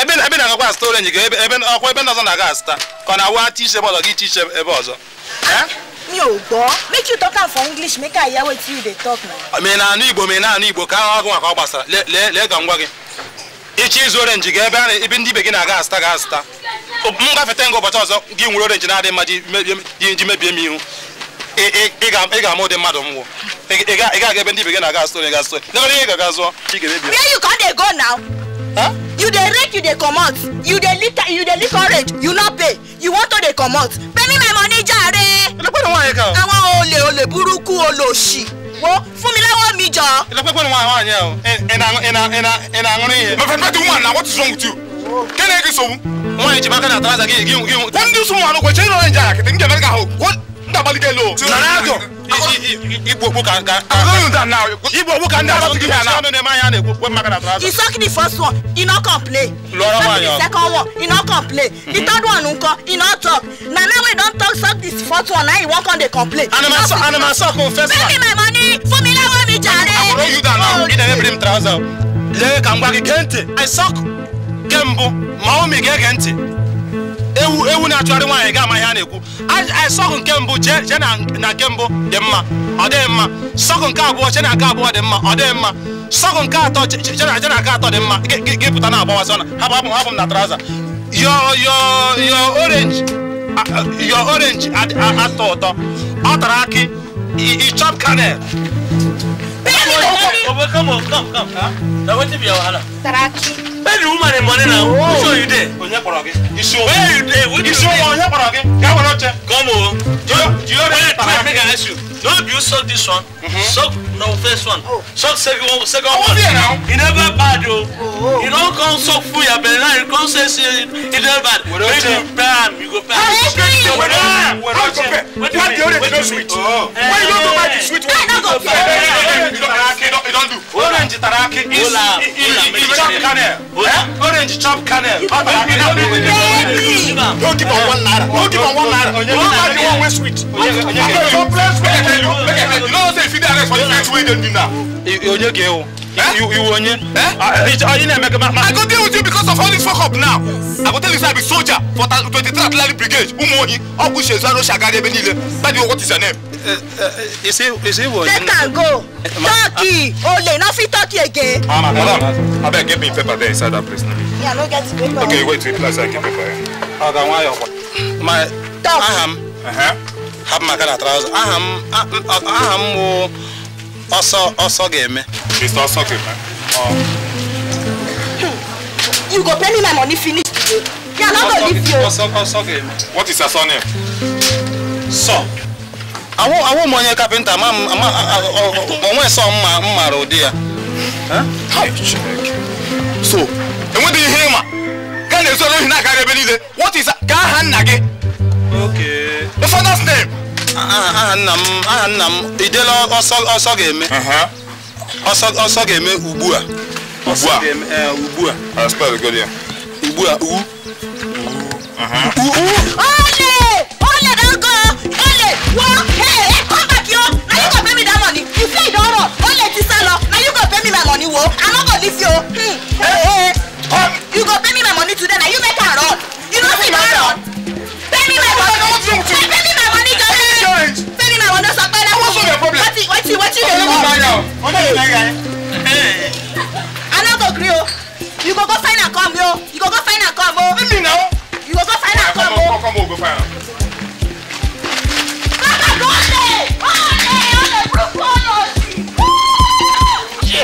ebe ebe na-agakwa azụta orenji ga ebe ọkwa ebe ndị ọzọ na-aga azụta ka ọ na-awa ti iche ebe ọzọ gị iche iche ebe ọzọ eh? mi ò gbọ́ make you talk am for english make i hear wetin you na. Ah, mi na-anụ igbo mi na-anụ igbo ka ahụ ọgụ maka ọ gbasara lee ka ngwa gị ịchọ izu orenji ga ebe ebe ndị ibe gị na-aga azụta ga azụta m gafeta nga ụbọchị ọzọ gị nwere orenji na-adị mma ji mebie m ihu ị ga-ama ụdị mmadụ m nwụ ị ga-aga ebe ndị ibe gị na-aga azụta orenji ga azụta ị ga-emebi. where you come dey go now. you dey rake you dey comot you dey lick you dey lick orange you no pay you wan to dey comot pay me my money jàre. ìlọpẹ́ ni wọ́n yẹ kan. àwọn olè olè burúkú olòṣì wo fún mi lọ́wọ́ mi jọ. ìlọpẹ́ ni wọ́n àwọn àyẹ̀ o ẹ̀nà ẹ̀nà ẹ̀nà ẹ̀nà àwọn yẹn. my friend wetin wan na what is wrong with you. kẹ́ni ẹ̀ kì í sọ̀wọ́. wọ́n yẹ jìbá kan àtàlásà kí yìí kí yìí. wọ́n ń dín sùn wọn àlọ́ kò ṣe é lọ́rẹ̀ jà kìtì ń jẹ mẹ́rin ká Igbo Igbo can can. I'm doing that now. Igbo Igbo can dance something here now. He suck the first one. He no complain. Lora Second one. He no complain. The mm-hmm. third one nko. He no talk. Na now we don talk suck this first one. Now he wan come dey complain. Anima so. Anima suck on first one. Give me my money. Fún mi lọ́wọ́ mi jàre. I borrow you that now. You never bring trouser. Lẹ́yìn kàmgbá kí gẹ́ntì. I suck. Kembu. Màá mi gẹ́ ewu ewu na-achọgharị nwaanyị ga-ama a na-ekwu sọkụ nke mbụ jee na nke mbụ dị mma ọ dịghị mma sọkụ nke abụọ jee na nke abụọ dị mma ọ dịghị mma sọkụ nke atọ jee na nke atọ dị mma gị pụta na agbawazi ọna hapụ hapụ hapụ m na traza yo yo atọ ụtọ ọ tara akị kanel Where the woman and money now? Who show you there? Isu. Where you there? Isu. Onye kpọrọ gị. Gaa were oche. Come on. Do you Don't you suck this one? Mm-hmm. Suck no first one. Oh. Suck second second oh, one. Now. It never bad though. Oh, oh. don't come suck full your belly now. You come say say it never bad. When you bam, you go bam. How you compare? When you when you compare? What the other is not sweet? Oh. Why you don't go buy the sweet one? I don't go buy. You don't do. Orange taraki is is chop kernel. Orange chop kernel. Don't give on one ladder. Don't give on one naira. Don't buy the one with sweet. I'm not your onye gị ewu iwu onye ị na-eme gị i go deal with you because of all this fuck up now i go tell you say soldier for 23 artillery brigade ụmụ ohi ọgwụ shezu anụ oshi agara ebe niile that is what is your name. let am go turkey ole no fit turkey again. ah madam me paper there inside that place now. me wait wait place i get paper. my aha m hapụ maka na traụza aha m bụ ọsọ ọsọ ga-eme you go pay me my money finish today yeah na go leave you ọsọ ọsọ ga-eme what is your surname sọ awụ m onye kapịnta ma onwe sọ mma m mara ụdị ya so enweghị ihe ịma ga na-ezoro ohi na-akara ebe niile what is ka aha nna gị okay the father's name. aha ah, nna ah, m aha nna m idela ọsọ ọsọ ga-eme ọsọ uh-huh. ọsọ ga-eme ugbu a ugbu a eh, ugbu a ugbu a uh-huh. u U. ole ole na nkọ ole wọ ee ẹ kọ́ bàkí o na yóò kọ́ bẹ́mi dá mọ̀ni ìfẹ́ ìdánwò ole ti sá lọ na go pay me my money, wo àmọ́ kò lífi o. you go pay me my money today na you make am run you no fit run pay me my money something. Fẹ́mi màmá ní jọ́lẹ̀. Fẹ́mi màmá ló sọ pé láwọn yẹn. Wọ́n ti wọ́n ti lè lọ. I no go gree o. You go go find am come o. You go go find am come o. Let me know. You go go find am come o. Come o go find am. Bàbá kò lè, ó lè, ó lè burúkú ó lọ sí.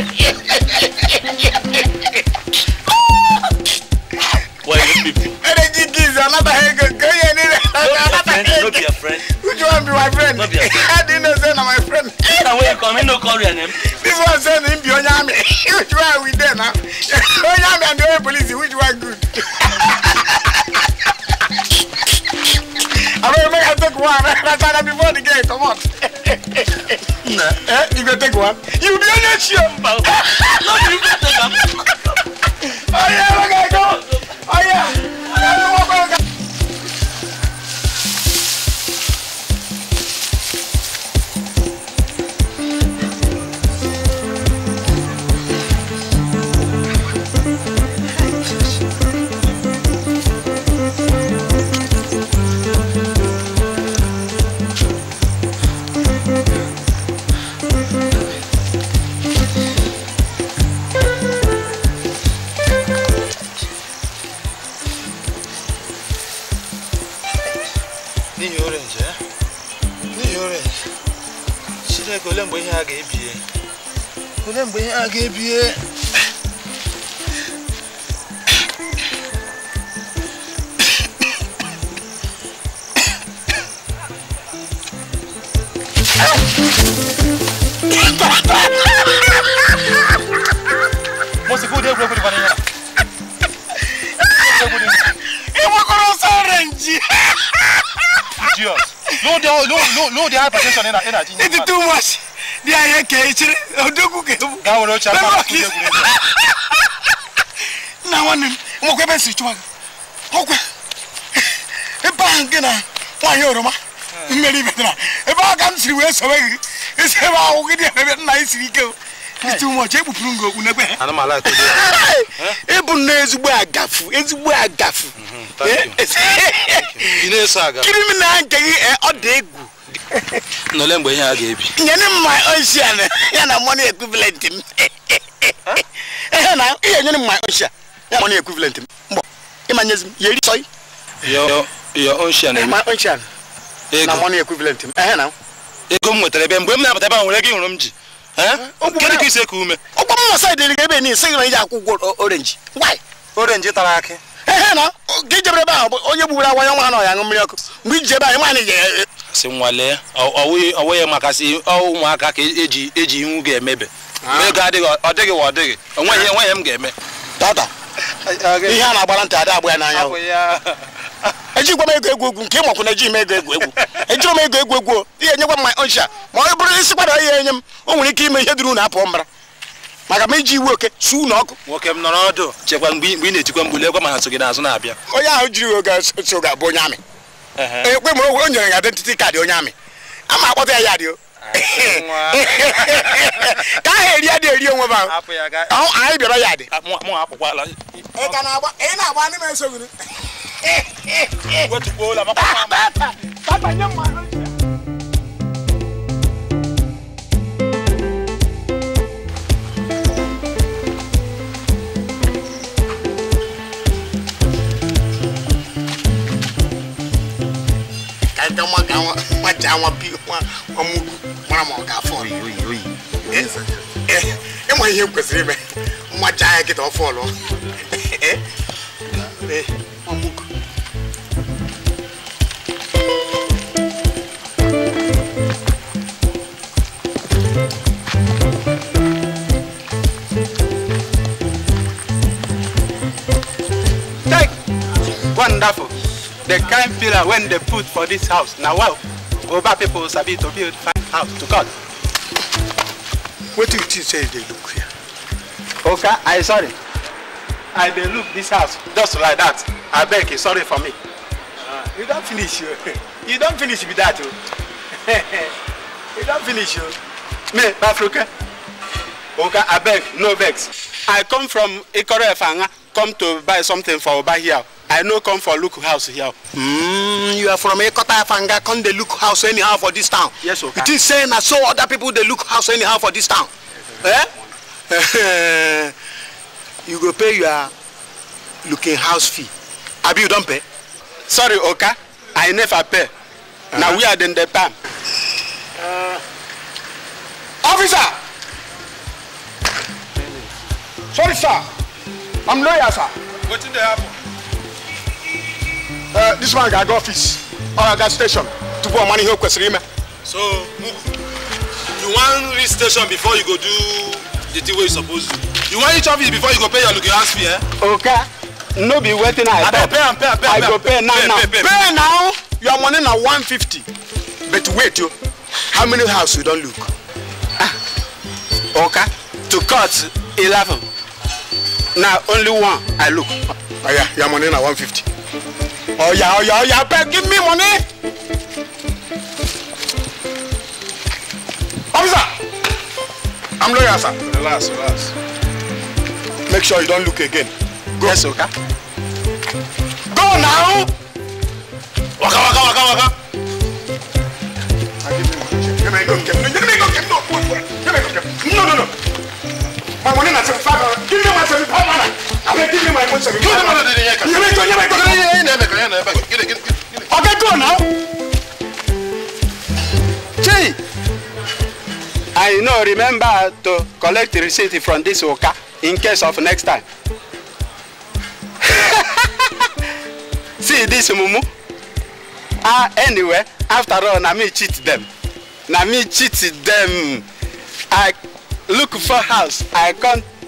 Why you people? Energy gives another head. Go ahead friend. No be a friend. Which one be my friend? No be a friend. I didn't know say na my friend. Na where you come, no call your name. This one say him be Onyame. Which one we there now? Onyame and the police, which one good? I don't make I take one. That's why before the game, come on. Nah. Eh, you go take one. You be on your show. No, you go take one. Oh yeah, my guy. ihe a ga-ebie olee mgbe ihe a ga-ebie Mọ̀sí kúndé egwu egwu dịkwa n'ihe a. Ịgbakọrọ ọsọ orenji. Jesus, no dey no no no dey hypertension in na in na. It is too much. dị anyị ka echiri odogwu ka ebu nna nwanne m nwekwa ebe si chụwa gị ọkwa ebe nke na nwaanyị oroma mmeri metara ebe ọ ka m wee sowe gị isi ebe ahụ gị dị ebe nna anyị siri ike m e okpu ezigbo agafu ezigbo mm-hmm, agafu kiri m na nke gị eh, ọ egwu n'ole mgbe ihe a ga-ebi nyere m ma ocean ya na money equivalent m ihe nyere m ma ya money equivalent m mbọ ịma nyezi m yeri sọị ma na m ehe na ego m nwetara ebe mgbe m na-abata ebe nwere gị hụrụ m ji Kedu ka isi eku ume ụgbọ m na saịdị ga ebe n'isi gị na iji akwụ ụgwọ orenji orenji tara akị ehe na gị jebere ebe ahụ onye gbugbere agwa ya ṅụ mmiri ọkụ mgbe iji ebe anyị nwaanyị si nwalee ọwụghị maka si ụmụaka ka eji e eji iwu ga-emebe ah. ego adịghị ọ dịghị wa ọ dịghị enweghị enweghị ah. m ga-eme tata ihe a na-agbara ntị ada agba ya n'anya ejikwa m ego egwu egwu nke ịmakwu na ejighị m ego egwu egwu ejiri m ego egwu egwu ihe enyekwa m ma ọcha ma ọ bụrụ isi kwada ihe enye m o nwere ike ime ihe dịrị unu apụọ mbara maka ma iji iwu oke su unu ọkụ nwoke m nọrọ ọdụ chekwa mgbe ị na-etikwa mgbu lekwa mana so n'azụ na-abịa onye ahụ jiri oge so abụ onye amị ekwe ma o nyere ya identity kaadị onye amị a ma akpọta ya ya dị o ka ha eri adị eri onwe ba anyị bịara ya dị na-agba ndị m esoghi ga wọn ga wọn wọn ja wọn bi wọn wọn mu wọn ma ọga fọọlù. ẹ mọ ihe kwesịrị ime nwa ja ya kịta ọ fọọlụ. Wonderful the kind pillar when they put for this house na wow oba people sabi to build fine house to god. wetin you think say you dey look here. oga i sorry i dey look dis house just like dat abeg you sorry for me. Uh, you don finish o you don finish be dat o you don finish o. me bafroke oga abeg no vex i come from ikoro efanga come to buy something for Oba here. I no come for look house here. Mm, you are from Ekota Afanga, come dey look house anyhow for this town. Yes, okay. It is saying that so other people dey look house anyhow for this town. Yes, eh? you go pay your looking house fee. Abi you don pay? Sorry, Oka, I never pay. Uh -huh. Na uh-huh. we are dem dey pay am. Uh, officer! Sorry, sir. I'm lawyer, sir. What did they happen? Uh, this one got office or uh, gas station to put money here question him. So you want this station before you go do the thing where you supposed to. You want each office before you go pay your looking house fee, eh? Okay. No be waiting. I, I pay, pay, and pay. I go pay, pay now. Pay, now. Pay, pay, pay. now. Your money now 150. But wait, you. Oh. How many house you don't look? Ah. Okay. To cut 11 na only one i look. oya oh, your money na one fifty. oya oh, oya oh, oya abeg give me money. officer i'm lawyer sir. relax relax. make sure you don look again. go yes okay. go now. waka waka waka waka. Give ah, give me go, give me go, give me go, give go, give No, no, no. My money na seventy-five sɛbi i m'o no remember to collect receipt from this worker in case of next time. see this mumu ah anyway after all na me cheat them. na me cheat them. i look for house i come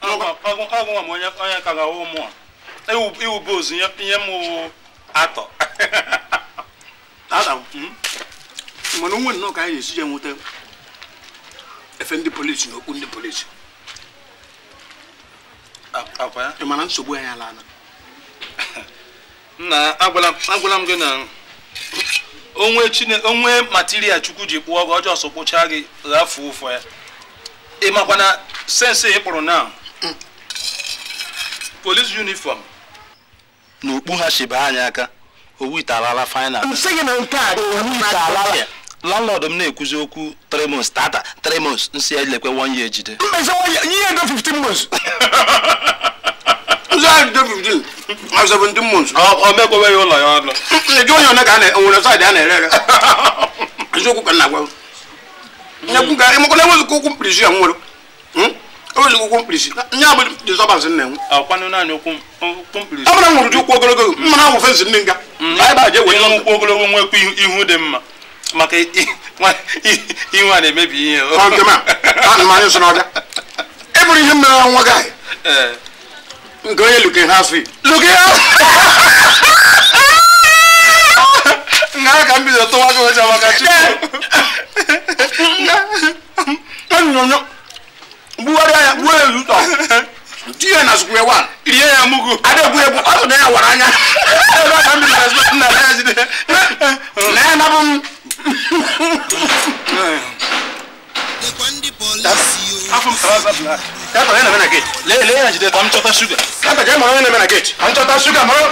ọgwụnwa m onye ka ga ụmụ a iwube ozu ihe m atọ hmm? mana onwe nnọọ ka anyị ga-esi je nweta efe ndị polisi na okpu ndị polisi ị mana nsogbu anyị ala nna agwala m gị na onwe material chukwu ji kpụọ gị ọjọọ so kpụchaa gị ghafuo ụfọ ya ị makwa na sensị ị kpụrụ na police uniform na ha anyị aka owu ite alala final landlord m na-ekwuzi okwu three months tata three months nsi ya lekwe one year jide nse ya 15 ụlọ ya ọnụ jụ onye one ka nwere saịdị a na-ere ere eziokwu ka nna gwa emekwana enweghị ka okwu mkpirisi ya nwere hmm? okwu mkpirisi nya bụ dizọbansị nna enwe amara nwụrụ ụkwụ ogologo mmanụ awụ fensị ndị nga anyị ba je wee ụkwụ ogologo nwekwa ihu dị mma maka ihu a na-emebi ihe anyị ihe mere nwa gị nke onye luke ha luke nga ka m bido tụwa gị maka buwari ya buwari yutɔ tiɲɛ na suguya wa. iye ya mugu. ale kun bu alo ne ya wara ɲa. e b'a kan bila so na n'a ye dɛ. ne na bɔ. a fɔ musaka sa bila. k'a tɔ ne na bɛ na gate. le le yɛrɛ jide an tɔ ta suga. k'a tɔ jɛ mɔnɔ ye ne bɛ na gate. an tɔ ta suga mɔnɔ.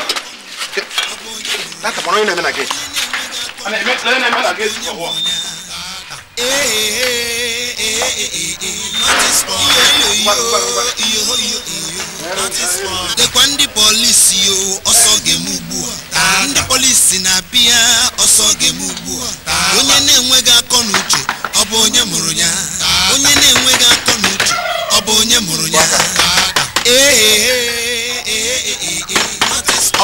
k'a tɔ mɔnɔ ye ne bɛ na gate. ale ne ne bɛ na gate. dekwa ndị polisi ọsọ ga ugbu a ndị polisi na-abịa ọsọ ga ugbu a onye na-enweghị akọ na uche onye mụrụ ya onye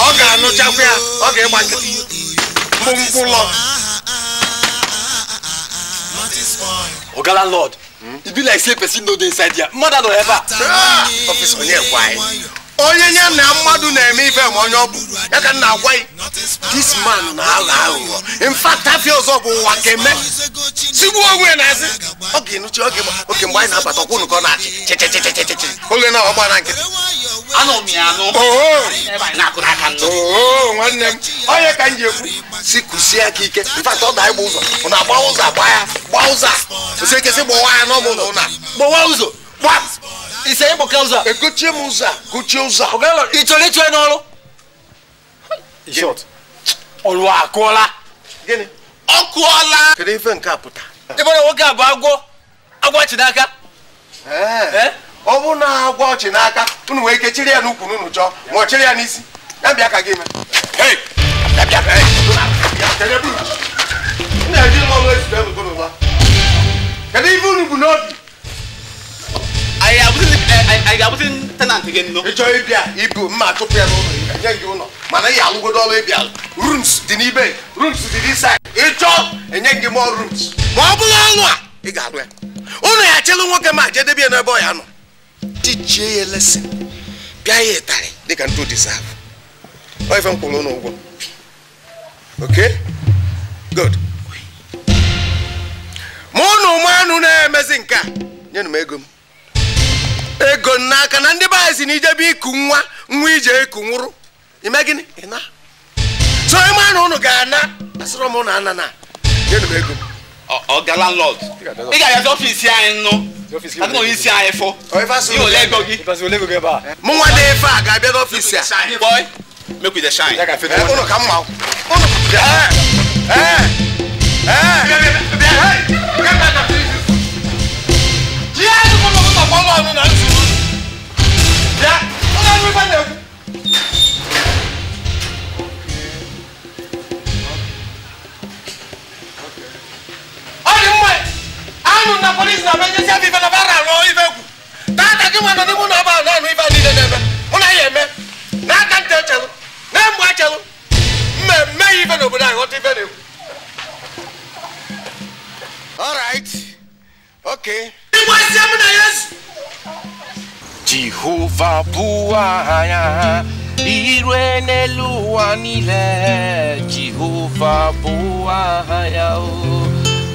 ọ ga-anụchakwa ya ọ ga mkpụmkpụlọ oga landlord e be like say person no dey inside here mother no ever ah! officer onye gwai e? onye ya na mmadụ na-eme ife ma onye ọ bụ ya ka nna agwa e, this man na-aghọ aghụghọ infact afia ọzọ bụ ụwa keme tigbuo onwe na-asị ọ ga-enuchi oge mgbe anyị na-abata ọkwụ nụkọ na-achị oge na na nkịtị anụ m ya anụ na-akụrụ aka nnụ nwanne m onye ka m ji ekwu si kụsie aka ike mfata ọ da ịgba ụzọ ụ na gba ụzọ gba ya gba ụzọ kwụsị ekesị gbawa ya n'ọmụ ụlọ ụna gbawa ụzọ gba ise ịgbọka ụzọ egochie m ụzọ gochie ụzọ ị chọrọ ịchọ n'ọrụ ọrụ akụọla ọ kụọla kedu ife nke a pụta ebe nwoke a bụ agwọ agwọ chi n'aka ọ na agwa ọchị n'aka unu nwee ike ya n'ukwu n'unu chọọ ma ọ ya n'isi ya bịa ka gị eme kedu ife unu bụ n'obi anyị ịbịa ibu mma chụpụ ya n'ụlọ enye gị ụlọ mana ị alụgodo ọrụ ịbịa rooms dị n'ibe rooms dị n'isa ịchọọ enye gị mọ rooms ma ọ bụrụ ọnụ ị ga-alụ ya ụnụ ya chelu nwoke ma jedebe ya n'ebe ọ ya nọ teachie ya lesson pịa ya ịtarị dịka ntụ deserve ọ ife m okay good ma ụnụ na-emezi nke a ego m ego n'aka na si na ijebe iku nwa nwa ije iku nwụrụ so ịma na ụnụ ga-ana na nyenụ m ego ọ̀gá landlord nígbà yẹn tó fi sí àyìn nù àti òun sí àyìn fọ yóò lẹ́gbọ̀gì. mú wọn lé fa àga ẹgbẹ́ tó fi sí à. boy make we dey shine. ẹ ọ̀nà ká mú wa o. ẹ ẹ ẹ. Yeah, you come over to follow me now. Yeah, I'm not even there. nanu na polisi na bɛ ɲɛsi a b'i fɛ na b'a ra lɔ i fɛ kun taa ta k'i ma na ni não na b'a la nu i b'a di de dɛ mɛ mun na yɛ mɛ n'a ka n tɛ cɛ lo n'a mu a cɛ lo mɛ mɛ y'i fɛ na o bɛ na yɔ t'i fɛ de kun. all right okay. i ma se mun na yesu. jehova bụ aha ire n'elu ụwa niile jehova bụ aha ya o oh.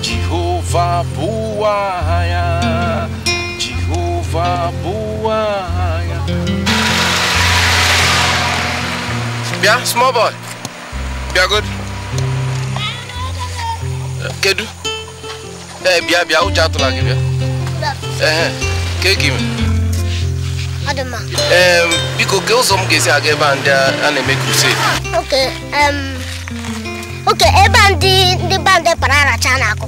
jehova buaya Jehova buaya Biar small boy biar good eh, Kedu Eh, biar biar aku jatuh lagi biar Eh, kayak gimana? ma. Um, because girls some m are esi aga ebe a ndị a na-eme crusade. Okay, um, okay, ebe a ndị band parara cha na-akụ.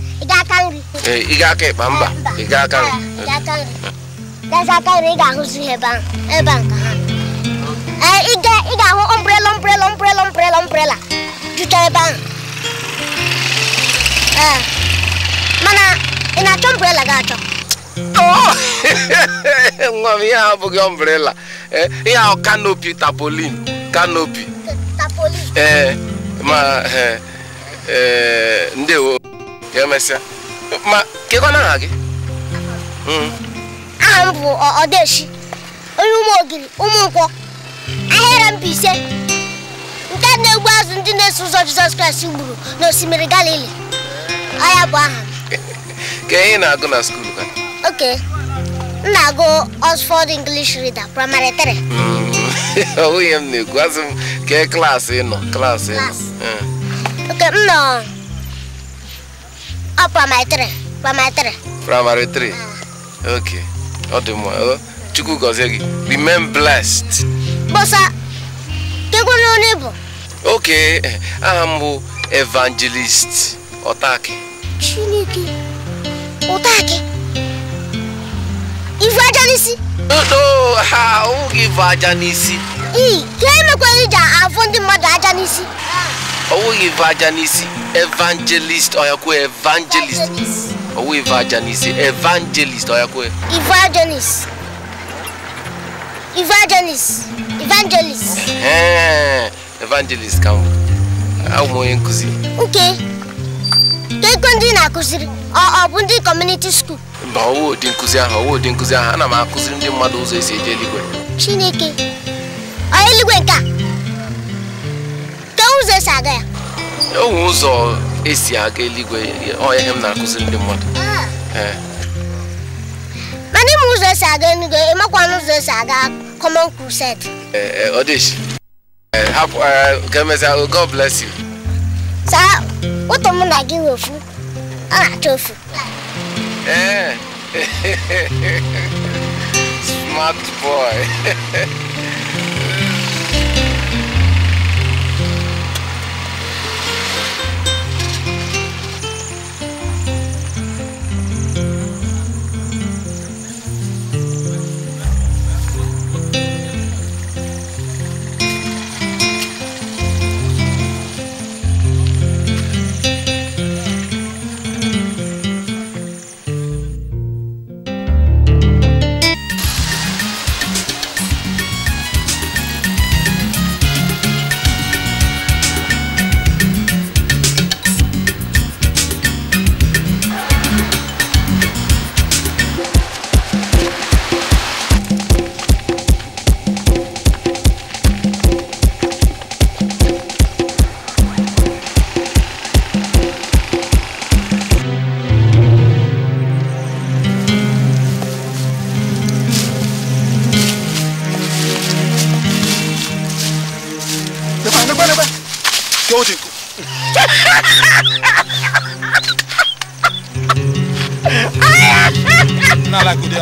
ị ga-aka ịkpa mba ị ga-aka nri ị ga-ahụzi ihe ebe a ị ga-ahụ ombrela ombrela ombrela ombrela ombrela ebe ahụ mana ị na-achọ ombrela ga-achọ oh! nwa m ihe abụghị ombrela ihe ahụ kanopi tapolin kanopi ee ma ndewo emesịa ma kekwana aha gị aha m bụ ọdeshi onye ụmụ ogiri ụmụ nkwọ eu mba ise nke na-egbu azụ ndị na-eso ụzọ jizọs kraịst gburu n'osimiri galili ọya bụ aha ka ihe na-agụ na skuul ka oke m na-agụ oxford english reader praịmarị 3 ọ nwunye m na-ekwu azụ m kee klaasị nọ klaasị nọ hmm. oke m nọ ọ oh, primary three primary three primary ah. three okay ọ dị mma chukwu gọzie gị remain blessed bọsa kekwe na onye bụ okay aha m bụ evangelist ọtaki chineke ọtaki ivu aja n'isi no ha ọ gị ife aja n'isi ii ka emekwa iji afụ ndị mmadụ aja n'isi ọwụghị ife aja n'isi evangelist ọyakwe evangelist ọwụghị ife aja n'isi evangelist ọyakwe evangelist evangelist evangelist evangelist ka m abụ m onye nkụzi Nke, keekwe ndị na-akụziri ọ bụ ndị community school mba ọwụ ụdị nkụzi ahụ ọwụ ụdị nkụzi ahụ ana m akụziri ndị mmadụ ụzọ esi eje eluigwe chineke ọ eluigwe nke a ụzọ esi aga ya onwe ụzọ esi aga eluigwe ọ ihe m na-akụziri ndị mmadụ ah. eh. mana ịma ụzọ esi aga eluigwe ịmakwana ụzọ esi aga common crusade ọdịshi hapụ ga-emezi god bless you saa ụtọ mụ na gị wefu ọ na-achọ ofu eh. smart boy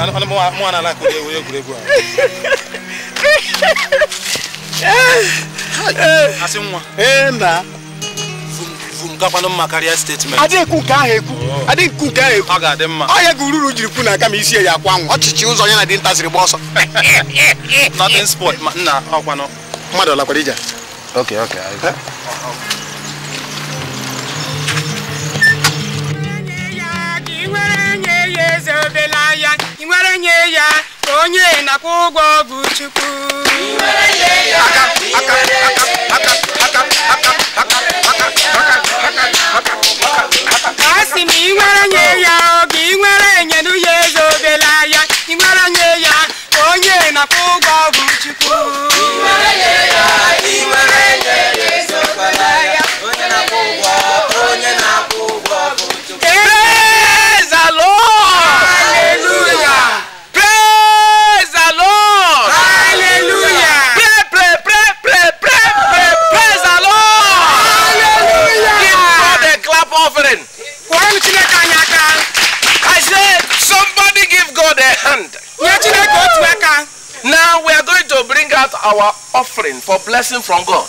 mụnwa na egwuregwu a asị nwa na mma karịa nke ọ ga-adị mma ọ gị ururu jiri kwu na aka ma isi ya akwa nwụ ọchịchị ụzọ onye na dị nta ziri gba ọsọ nothing sport na mmadụ lakwara ije okay okay inwerenyeya onye na kwụgwọ bụ chukwu asị m inwerenye ya oge inwerenyelu ya eze obela ya inwerenye ya onye na kwụgwọ bụ chukwu I said, somebody give God a hand. out our offering for blessing from God.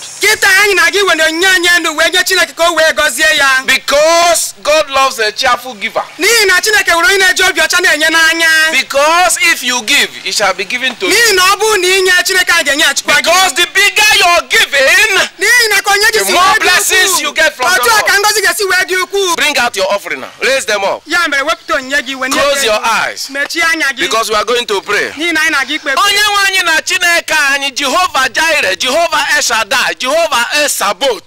anyị na gị onye onye Chineke ka o wee gọzie ya. Because God loves a cheerful giver. N'ihi na Chineke onye na obi ọcha na-enye n'anya. Because if you give, it shall be given to you. N'ihi na ọ bụrụ na inye Chineke ga-enye achịkwa gị. Because the bigger are giving, onye more blessings you get from God. Bring out your offering now. Raise them up. Close your eyes. Because we are going to pray. na nwe na Chineke anyị jehova jaire jehova eshada jehova esabot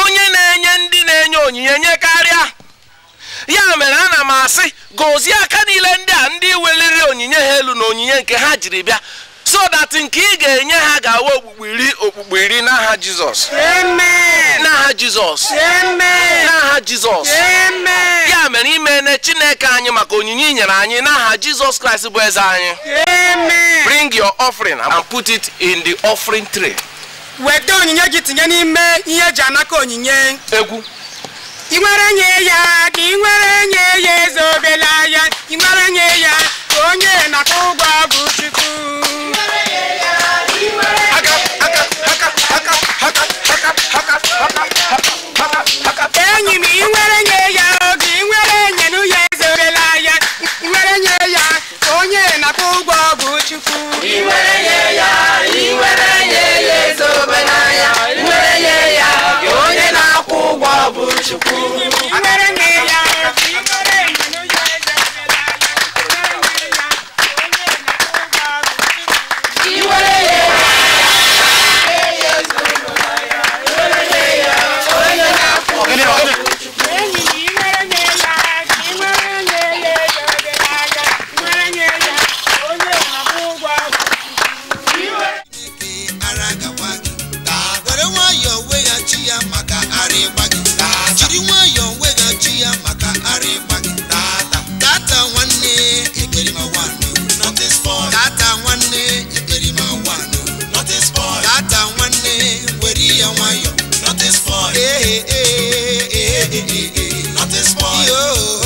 onye na-enye ndị na-enye onyinye nye karịa ya mere ana m asị gozie aka niile ndị a ndị weliri onyinye ha elu na onyinye nke ha jiri bịa so that nke ị ga-enye ha ga-awa okpukpe iri okpukpe iri n'aha jizọs n'aha jizọs n'aha jizọs ya mere imene chineke anyị maka onyinye nyere anyị n'aha jizọs kraịst bụ eze anyị bring your offering and put it in the offering tray weta onyinye gị tinye n'ime ihe eji anaka onyinye egwu ị nwere nye ya ka ị nwere nye ya eze obele anya ị nwere nye ya onye na-akwụ ụgwọ bụ Chukwu enyi m inwere nye ya oge inwere enye nụ ezorela ya inwere nye ya onye na akpọ ụgwọ bụ Chukwu inwere nye ya inwere nye ya ezobela nothing spoil.